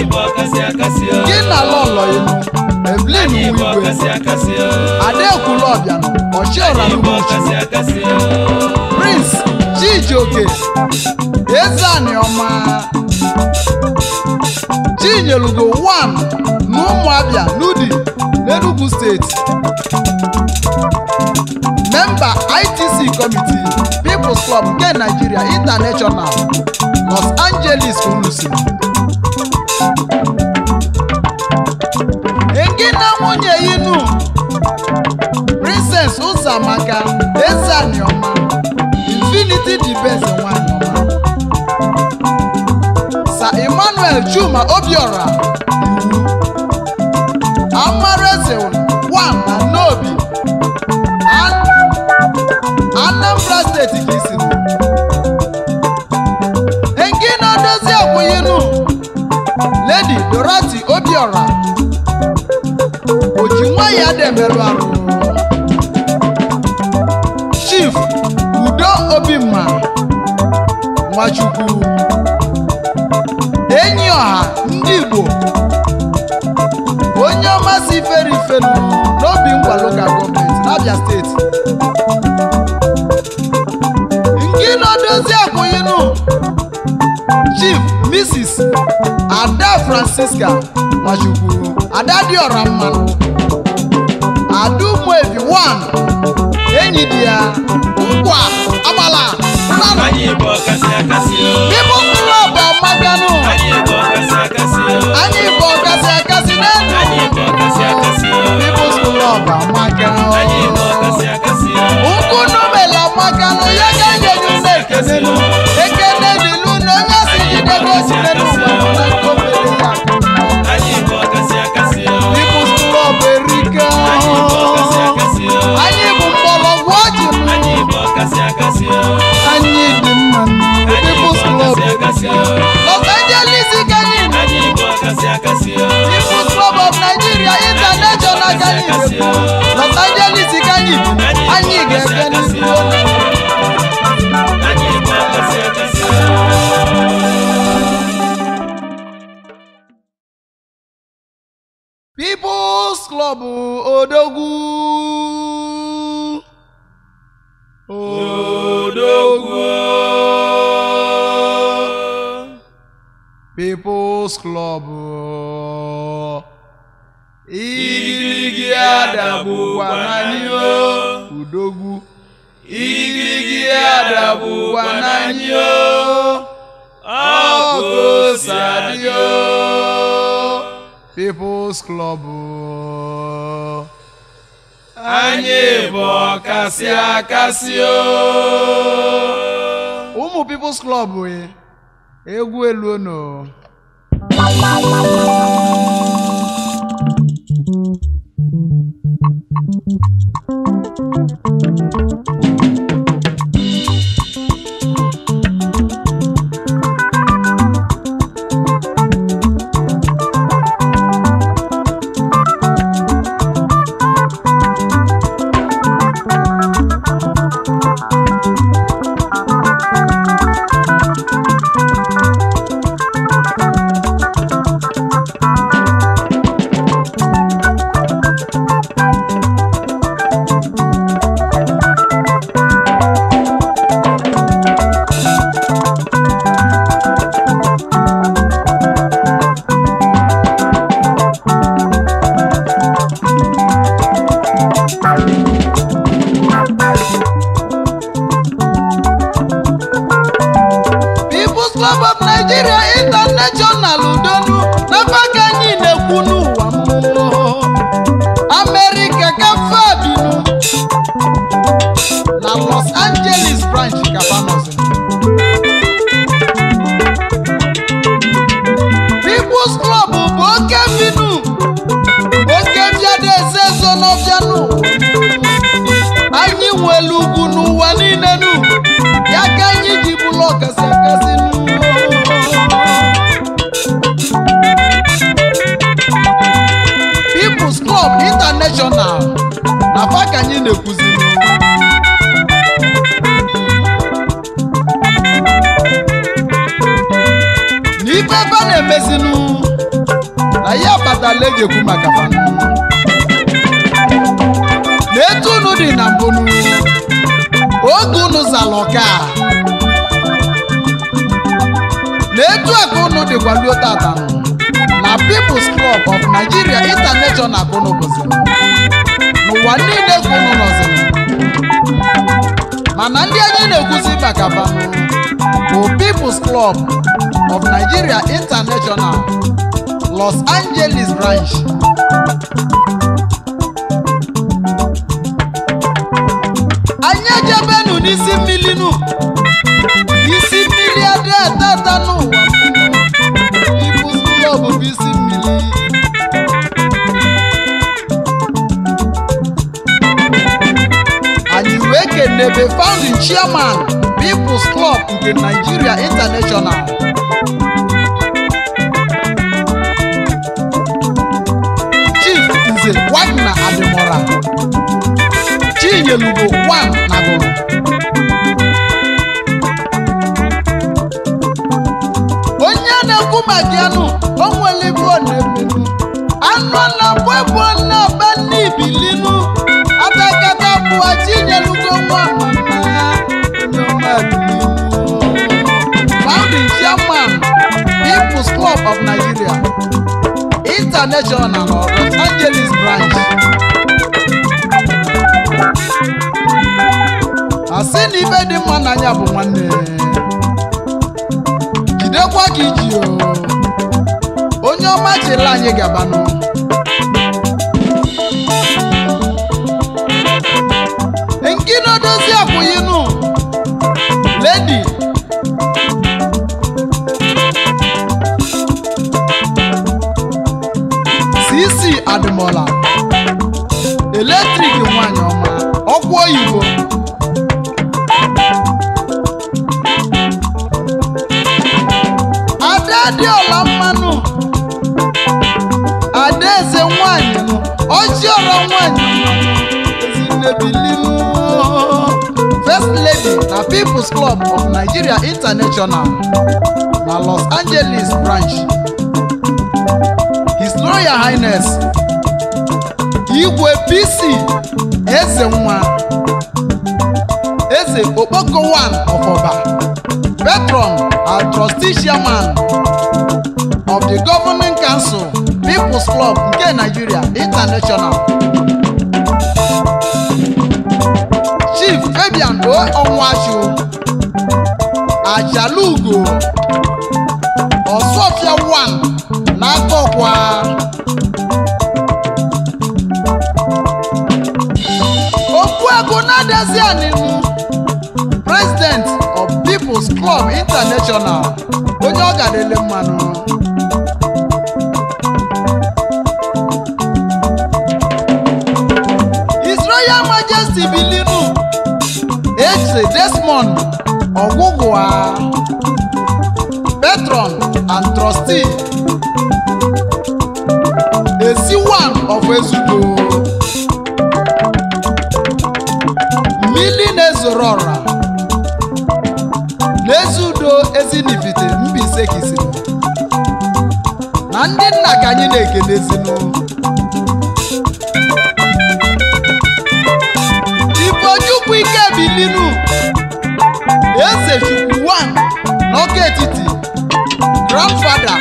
gịnị ala ọlọ ịnụ evelyn wigwe adeokunle ọbịanụ ọchiọra n'ubuchi prince chijioke ezeaniọma chinyelugo 1 n'ụmụabịa n'udi n'enugu State, Member itc committee people's club nke nigeria international los angeles olusi gị na nwunye inu Princess Ụzọamaka Ezeaniọma Infinity the best nwanyị ọma Sir Emmanuel Chuma Obiora Amareze one na n'obi. Anambra steeti ka isiri nke na-edozi akwụ inu Lady Dorati Obiora Ojimaya Demberwaru Chief Udo Obima Machuku Enyoha Ndibo Onyoma Siferi Fenu Nobimwa Local Government Nabia State Ngino Dozia Kuyinu Ngino Dozia Kuyinu chief mrs ada francisca nwachukwu adadiora mmanụ adumuebi one enyi di ya nkwa agbala nana ibu nkụrụ ọba mmaganụ anyị bụ ọkasị akasị na ibu nkụrụ ọba mmaganụ nkụ nomela mmaganụ ya ga-enye gị ndị ekele Nigeria International Gallery. ṣọ́ọ̀bù odógún. odógún. people's club. igirigi àdàbò wà nání o. odógún. igirigi àdàbò wà nání o. ọkọ̀ People's Club anyị bụ ọkasị akasị ụmụ People's Club egwu elu ono Thank you. emezinu na ya batala eji ekwu maka fanu na etu unu dị na mbụnu oge unu zala ọka na etu a ka unu dịkwa ruo tata na People's Club of Nigeria International ka unu bụziri n'ụwa niile ka unu nọziri mana ndị anyị na-ekwuzi maka fanu bụ People's Club of Nigeria International, Los Angeles branch. anyị ejebenu n'isi mmiri nụ isi mmiri adịeteta n'ụwa ibuzula ọbụbụ isi mmiri anyị wee founding chairman People's Club nke Nigeria International onye na-ekwu maka anụ o nwere ibu ọ na-emenu anụ na na be n'ibilinu abịakata bụa tinyelugo nwa Founding chairman of Nigeria International Los branch asị na ibe dị mma n'anya bụ nwanne jidekwa gị ji onye ọma chere anyị gabanụ nkino dozie akwụyinu ledi cc adịmọla eletrik nwanyị lọ́wọ́ ìwọ. Adedeola mmanụ adaeze nwanyị nụ ojiọra nwanyị first lady na People's Club of Nigeria International na Los Angeles branch His Royal Highness Igwe PC. eze nwa eze okpoko one of patron and trustee chairman of the governing council people's club nke nigeria international chief fabian o onwachu ugo. Kazeem Ninu president of People's Club International onye ọ gara ele mmanụ His Royal Majesty Bilinu Eze Desmond Ogwugwa patron and trustee Ezi one of Ezugbo ọrọra n'ezi udo ezinibite Mbaise Kisima na ndị nna ka anyị na-ekelezinu Ifechukwu ike bilinu eze chukwu 1 n'ọka etiti grandfada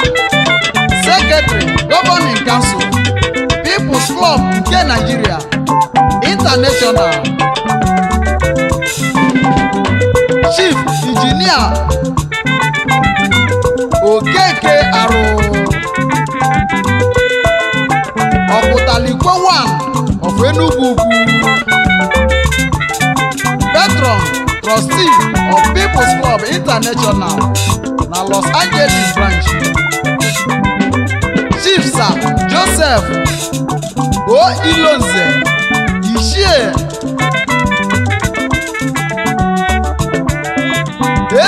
sekretari gọvanin kansụl People's Club nke Nigeria International chief engineer Okeke Aro ọkụtalikwo one of Enugu Ukwu patron trustee of People's Club International na Los Angeles branch chief sir Joseph O Oilonze Ichie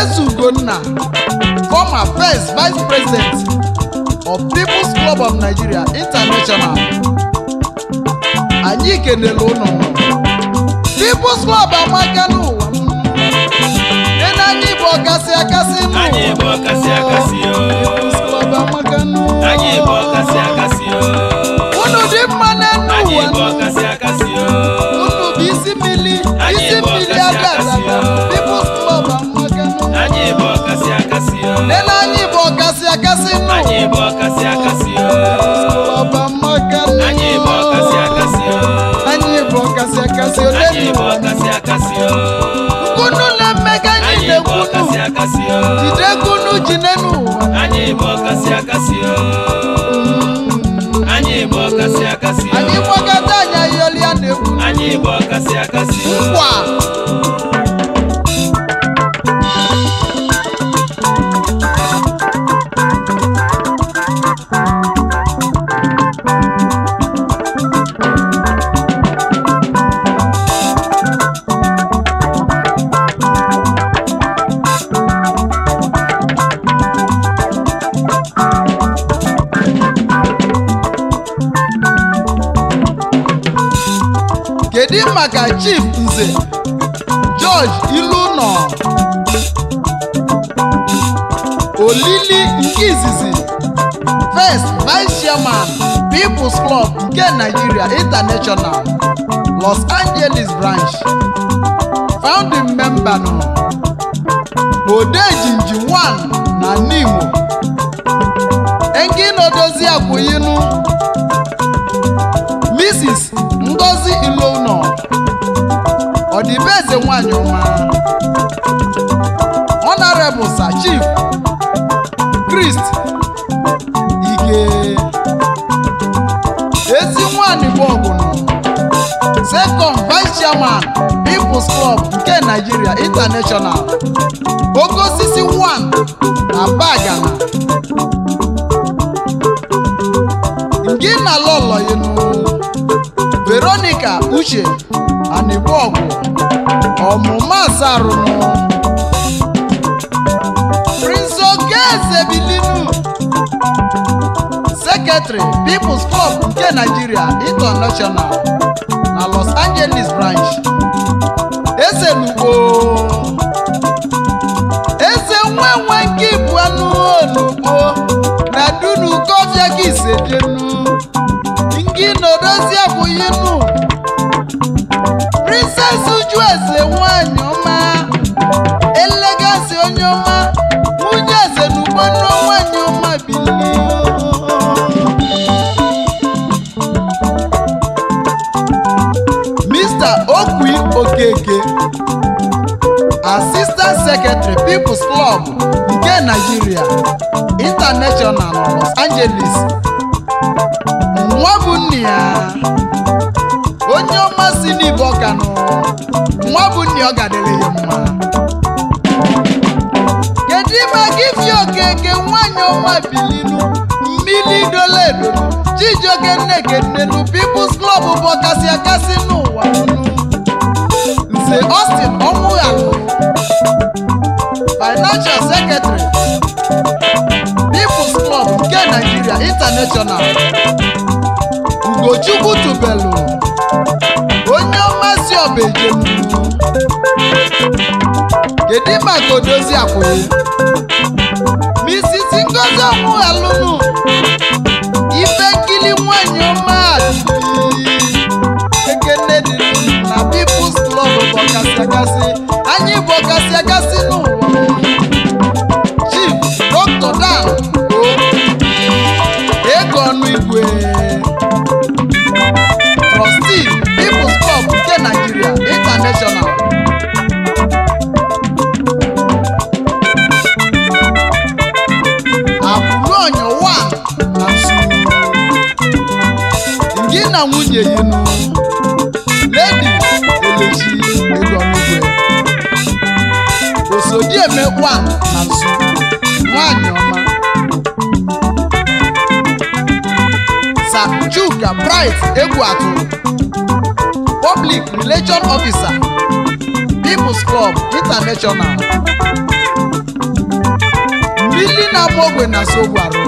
Ezu Ugonna, former first vice president of People's Club of Nigeria International. Anyị kenele ụnụ. People's Club amaka n'ụwa nne na anyị bụ ọkasị akasị n'ụwa. Anyị bụ ọkasị akasị ooo. People's Club amaka n'ụwa. Anyị bụ ọkasị akasị ooo. Unu dị mma n'enu ụwa. Anyị bụ ọkasị akasị ooo. akasi akasio. Jide kunu jinenu. akasi bụ ọkasị akasio. Anyị bụ ọkasị akasio. Anyị gbagata anya yọlịa na egwu. Anyị bụ akasi akasio. Nkwa. Chief Nze George Ilunọ olili nke izizi first vice chairman People's Club nke Nigeria International Los Angeles branch founding member nọ n'odejinji 1 na Nimo Engino Dozie Akụyinu eze nwanyị ọma honorable sir chief Christ Ige ezi nwanyị bọgụnụ second vice chairman People's Club nke Nigeria International oke cc 1 na bagana gị na lọlọinu Veronica Uche anịbọgụ ọmụma sarụnụ Prince Okezie Bilinu sekretari People's Club nke Nigeria International na Los Angeles branch eselugbo eze nwenwe nke ibu anụ olugbo na dunukoviagise denu eze nwanyị ọma elegasi onye ọma nwunye eze na ugbo nne nwanyị ọma bilie Mr. Okwi Okeke Assistant Secretary People's slum nke Nigeria International na Los Angeles nwa bụ nne ya onye ọma si n'ibe ọka nọ nwa bụ nne ọ gadere ya mma kedu ibe gị fi okeke nwanyị ọma bilinu mmiri dole edo chijioke nneke nnenu People's Club bụ ọkasị akasị n'ụwa nze Austin Ọmụghalụ Financial Secretary People's Club nke Nigeria International Ugochukwu Tubelu ọbeje kedu maka odozi akwụghị misisi ngozi ọmụ alụnụ ife nkili nwanyị ọma ekene dị na People's Club ọbọkasị akasị na nwunye yi nụ ledi eleji ego ọmụgwọ osodi emekwa na nso nwanyị ọma sa chuka bright egwu atụ public relation officer people's club international mmiri na-agba ogwe na so gwara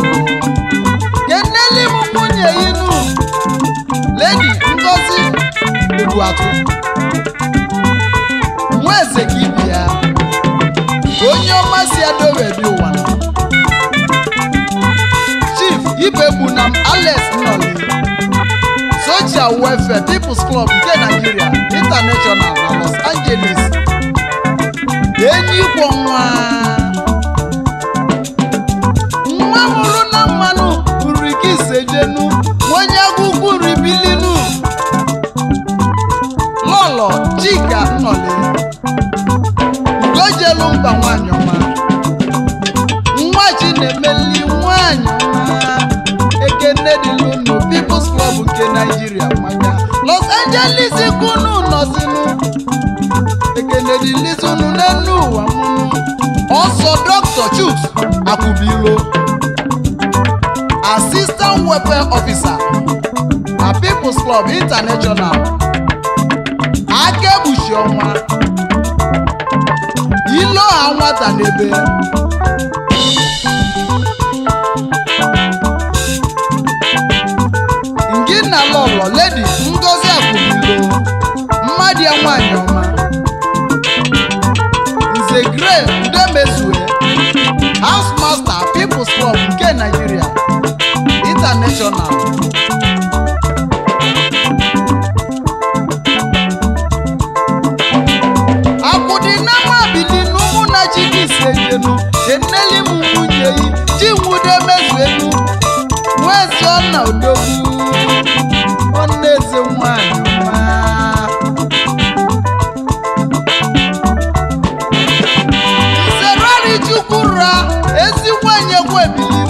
kenele m nwunye inu Lady Ngozi Egbuatu nwa eze ya onye ọma si adowe dị ụwa Chief Ibegbu na Alex Nnọli Soja Welfare People's Club nke Nigeria International na Los Angeles enyi ịkwọ nwa nwa na mmanụ pụrụ ike ise jenu ọlị ugo mba nwanyị ọma nwa ji na-emeli nwaanyị ọma ekene dịlụ Club nke Naijiria maka Los Angeles kunu nọzinụ ekene dịlizinu n'elu ụwa mụnụ ọsọ Dr. Chuks Akụbilo Assistant Welfare Officer na People's Club Intanetional. ọma ilo ha nwata n'ebe ngị na lọlọ ledi ngozi akụbilo mmadụ ya nwanyị ọma nze gre ndemezue house master people's club nke Nigeria international eneli m nwunye yi chinwude mezu elu nwezi ọna odogwu ọna eze nwanyị nserori chukwura ezigbo enyekwa ebilimu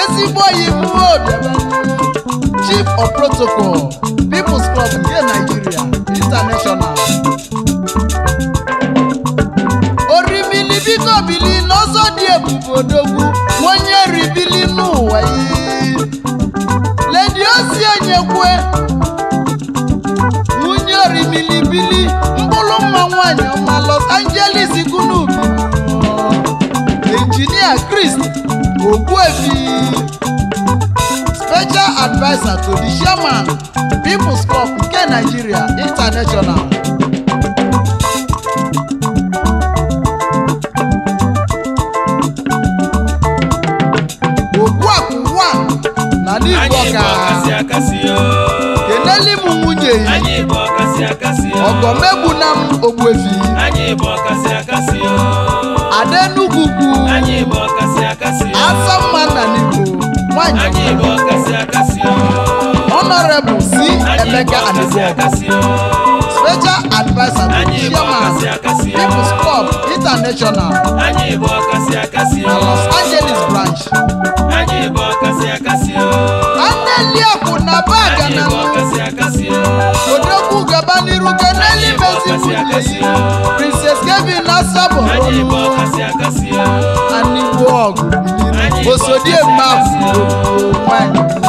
ezigbo yimu odebelu chief of protocol people's club nke nigeria international dị ebubodogwu onye ribili n'ụwa iyi ledi osi enyekwe nwunye rimilibili mkpụrụ mma nwanyị ọma Los Angeles kunubi injinia Chris Ogbuefi special advisor to the chairman People's Club nke Nigeria International oge ọgọ megbu na m ogbuefi ada enugwu ugwu afọ mma na n'igbo nwanyị honorable si emeka anigo special adviser to chairman people's club international na los angeles branch. Nelia kunabaga na Odoku gabaniru ganeli besi kuli Princess Kevin asabo Ani wogu Osodie mafu Mwani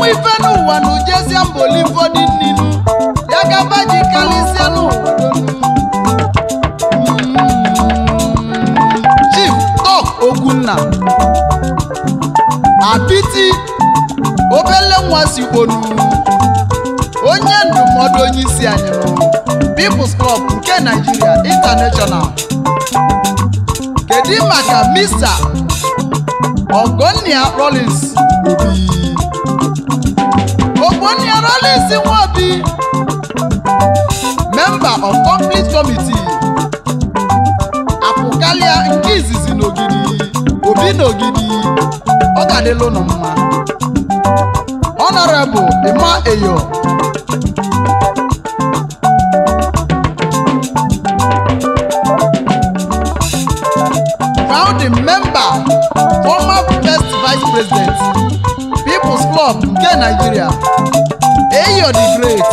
ụmụ ife n'ụwa na ujezie mbolifo dị nninu bịa gaba ji kalịsịa n'ụwa hmm. chief tok okwunna apiti obele nwa si onye ndụmọdụ onye anyị People's Club nke Nigeria International kedu maka Mr. Ogonia Rollins Obi Igbonia nwa Nwobi member of complete committee apụkalịa nke izizi n'ogidi obi n'ogidi ọ ga-adịla ụnụ mma honorable Emma Eyo Nigeria, Naịjirịa Eyo the Great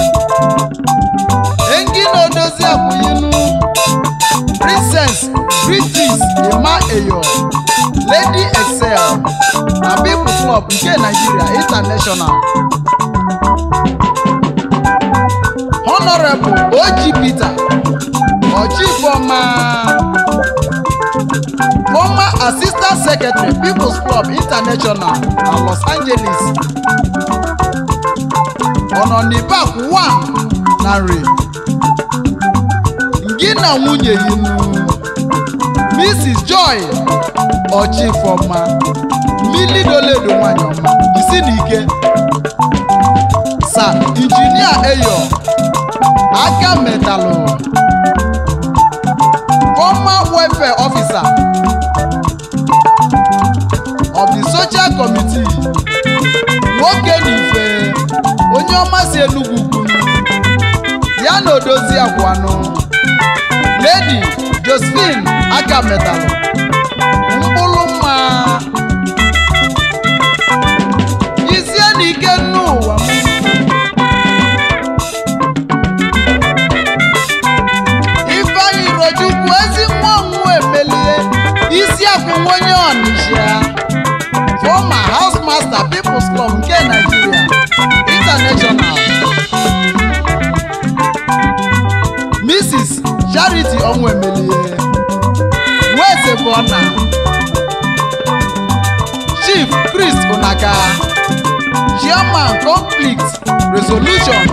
Engi no Engin Odoziakwuyinu Princess British Emma Eyo Lady Excel na People Club nke Nigeria, International Honorable Oji Peter Ọchịfọma assistant secretary people's club international na los angeles ọnọnibak one narị gị na nwunye yi mrs joy ọchịfọma milidoledo nwanyị ọma jisi n'ike sa injinia eyo aka metalụ former welfare officer soshal komiti nwoke na onye ọma si Enugu ya na odozi agwanụ Lady Josephine aka metalụ From nke Nigeria, International Mrs. Charity Onwemeli Nwezebona Chief Priest Onaka. Chairman Conflict Resolution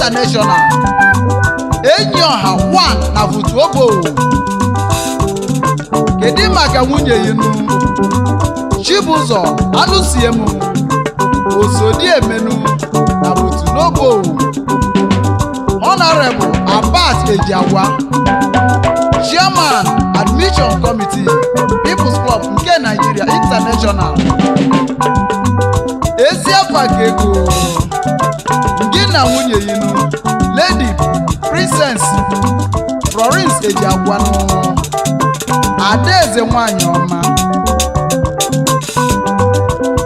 International enyi ọha one na Vutuobo kedu maka nwunye yinu Chibụzọ Anụsiemu emenu na Vutunobo Honorable Abbas Ejiawa Chairman Admission Committee People's Club nke Nigeria International Eziafa Kego gị na nwunye yinu ledi eji agwa Ejiakwanụ adaeze nwanyị ọma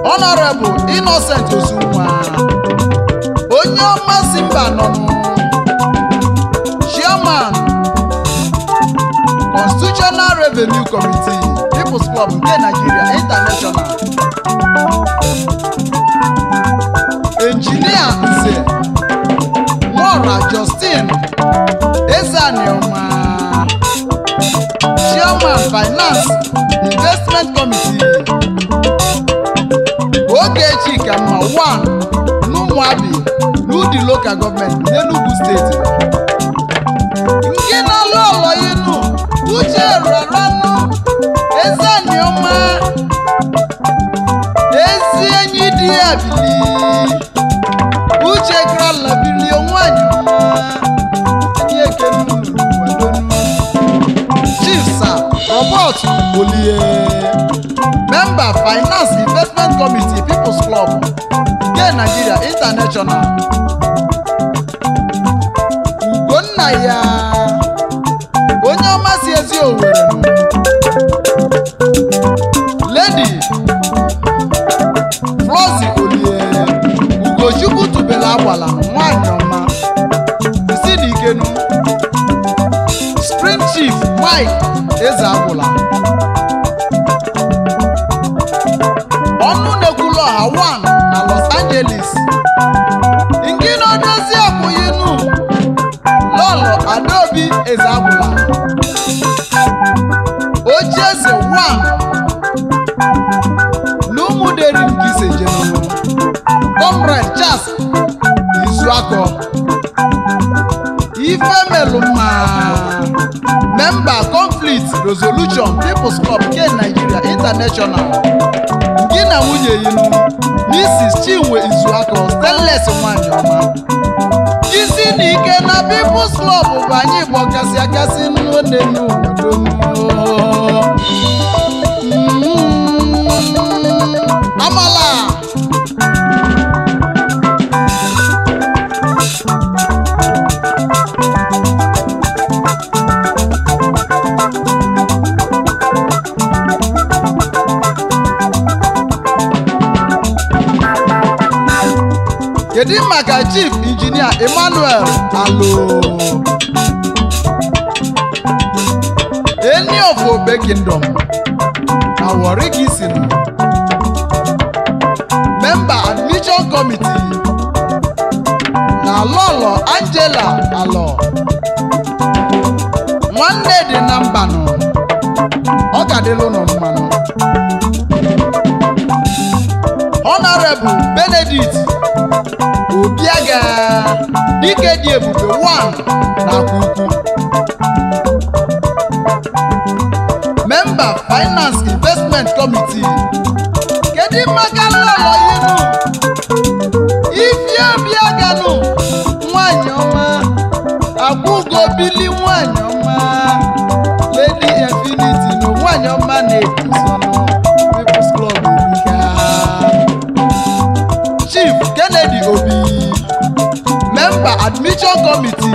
honorable Innocent Osunwa onye ọma si mba nọnụ chairman constitutional revenue committee People's Club nke Nigeria International Chioma Justin Ezeanioma Chairman Finance Investment Committee Ogechi Kamma one n'Ụmụabi n'Udi Local Government n'Enugu Steeti. Nke na-alụ ọlọ inu Uche Rarano, Ezeanioma ezi enyi dị ebili Uche Gralabili Port Olie memba Finance Investment Committee People's Club nke Nigeria International Ugonna ya onye ọma si ezi Owerri Lady Flozi Olie Ugochukwu tubele agbala nwanyị ọma isi na ikenu Spring Chief Mike Eze Agwụla conference jazz izu akọ ifemelu ma conflict resolution people's club nke nigeria international gị na nwunye yinu mrs chinwe izuakọ stanless nwanyị ọma nike na ike na people's club bụ anyị igbo gasị agasị amala kedu maka chief injinia Emmanuel Alo Eniofo Obe Kingdom na Warri Gisi na memba admission committee na Lolo Angela Alo nwanne dị na mba ọ ka lo ụlọ mmanụ Honorable Benedict obiaga dike dị ebube wan nakwa ukwu memba finance investment committee kedu mmakalụlọ inu ifi obiaganụ nwanyị ọma akwụgo bili nwanyị ọma lady infinity nụ nwanyị ọma na-ebu sọnụ Central Committee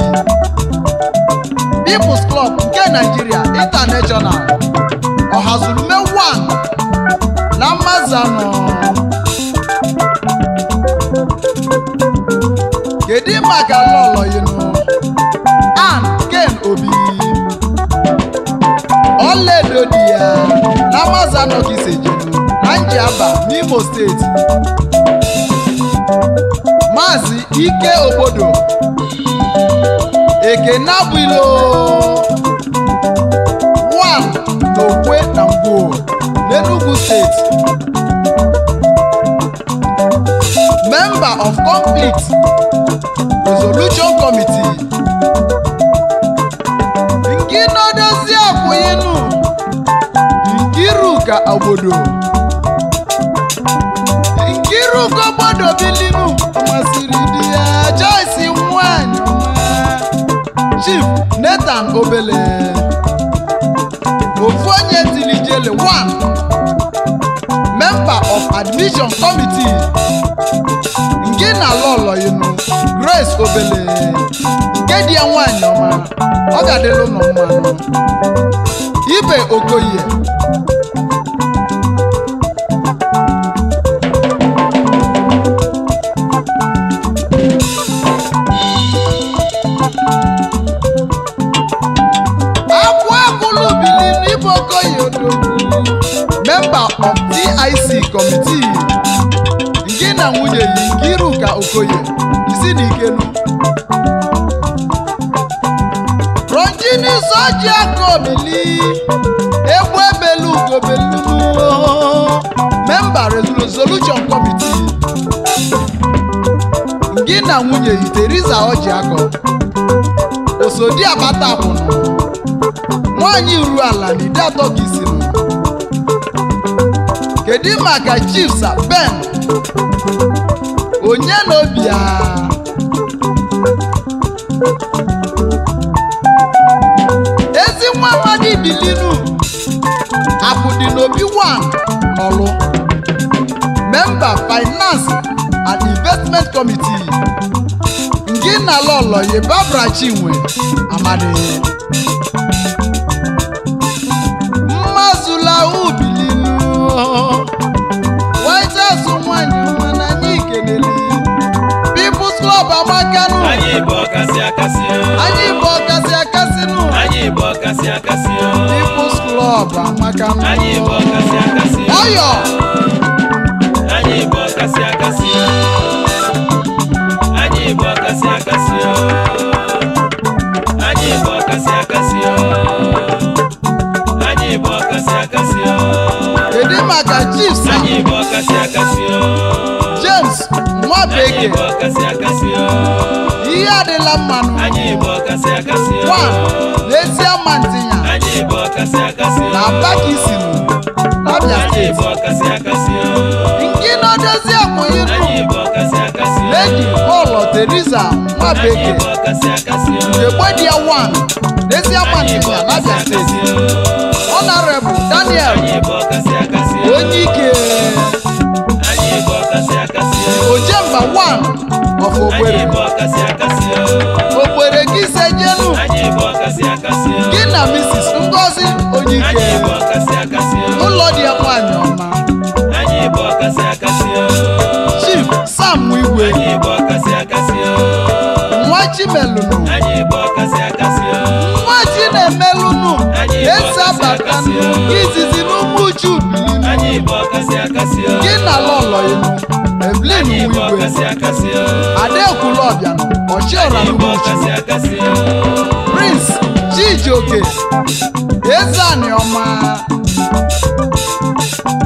People's Club nke Nigeria International Ọhazurume 1 na Mazano kedu maka lọlọyinu Ann Ken Obi ọlaedo di ya na Mazano Kisejenu na Njiaba n'Imo steeti Maazị Ike Obodo eke na bilo one n'okwe na ngwo n'enugu steeti member of conflict resolution committee nkino dozie akwụyinu nkiruka obodo nkiruka obodo bilinu ọmasịrị Nathan Obele ofu onye one member of admission committee nke na know, Grace Obele nke di ya nwanyị ọma ọ ga-adịla mmanụ Ibe Okoye memba of DIC committee gị na nwunye yi ka Okoye isi na Ikelu Rọjini Soji Akomili Egwu Ebelu Ugobelu memba resolution committee gị na nwunye yi Teresa Ojiako osodi agbata akwụna nwaanyị uru ala na ide atọ ka isiri kedu maka chiefs ben onye na ya ezi nwa amadi bilinu akụdị n'obi 1 n'ọlụ memba finance and investment committee nke na lọlọ yebabra chinwe amadi aka nụ anyị bụ ọkasị akasị anyị bụ ọkasị akasị nụ People's Club amaka nụ anyị bụ ọkasị akasị ọyọ anyị bụ ọkasị akasị anyị bụ ọkasị akasị anyị bụ ọkasị maka chiefs bege. Ihe adịla mma nụ. Kwa n'ezi amantinya. Na Abakisi nụ. Abia steeti. Nke na dozie akwụghị nụ. Lady Paul Teresa nwa the boy dia one n'ezi amantinya na Abia steeti. Honorable Daniel Onye ike. Ojemba one of Ogbere. Ogbere gị se jenu. Gị na Mrs. Ngozi Ojike. Ụlọ dị ya nwaanyị ọma. Chief Sam Igwe. Nwa Chimelụnụ. Nwa Chinemelụnụ. Esi abata n'izizi n'ụmụ Chubilinu enu wiwe Adeoku Lọbịa Ọchiọra Ugochi Prince Chijioke Ezaniọma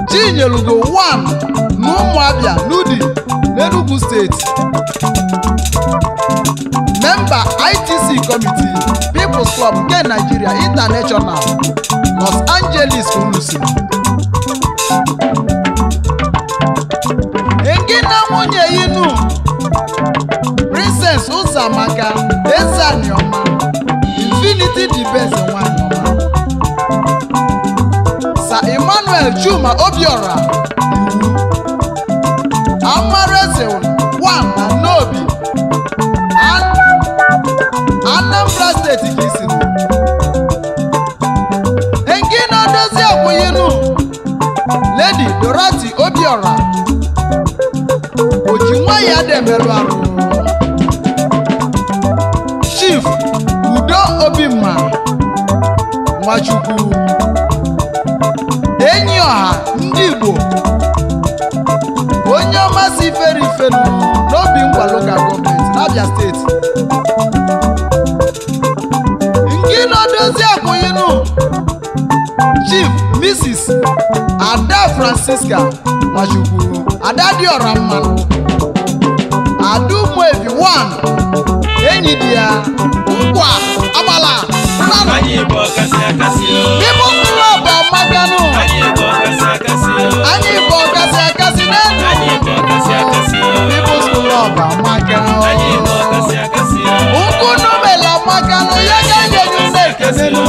Chinyelugo 1 n'Ụmụabịa Nudi n'Enugu steeti memba ITC Committee People's Club nke Nigeria International Los Angeles Olusi onye yinu princess uzamaka eze anyoma infinity di beze nwanyoma sa emmanuel juma obiora amareze wana n'obi anambra steeti kisi Dorothy Obiora. Oh, ya dẹ̀ bẹ̀rù Chief Udo Obima Nwachukwu Enyoha, ọha ndị Igbo onye ọma si fere ife n'obi ngwa lokal gọọmenti n'Abia steeti nke nọdozi akwụnyinu Chief Mrs. Ada Francisca Nwachukwu ada dị ọra adum evi one enyi di ya nkwa agbala nanu. anyị bụ ọkasị akasị o. ibu mmiri ọbụ amakanụ. anyị bụ ọkasị akasị o. anyị bụ ọkasị akasị n'elu. anyị bụ ọkasị akasị o. ibu mmiri ọbụ amakanụ. anyị bụ ọkasị akasị o. nkwu numela amakanụ ya ka ekele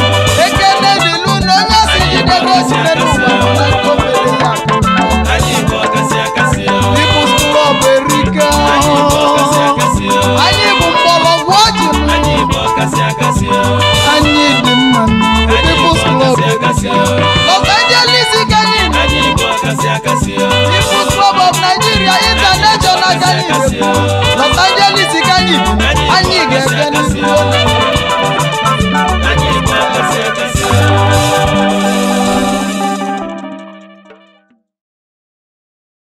akasi I need the man. I club. Akasi akasi o. Oh. Los Angeles I need People's Club of Nigeria International Ghani. Los I need the akasi akasi o. I need the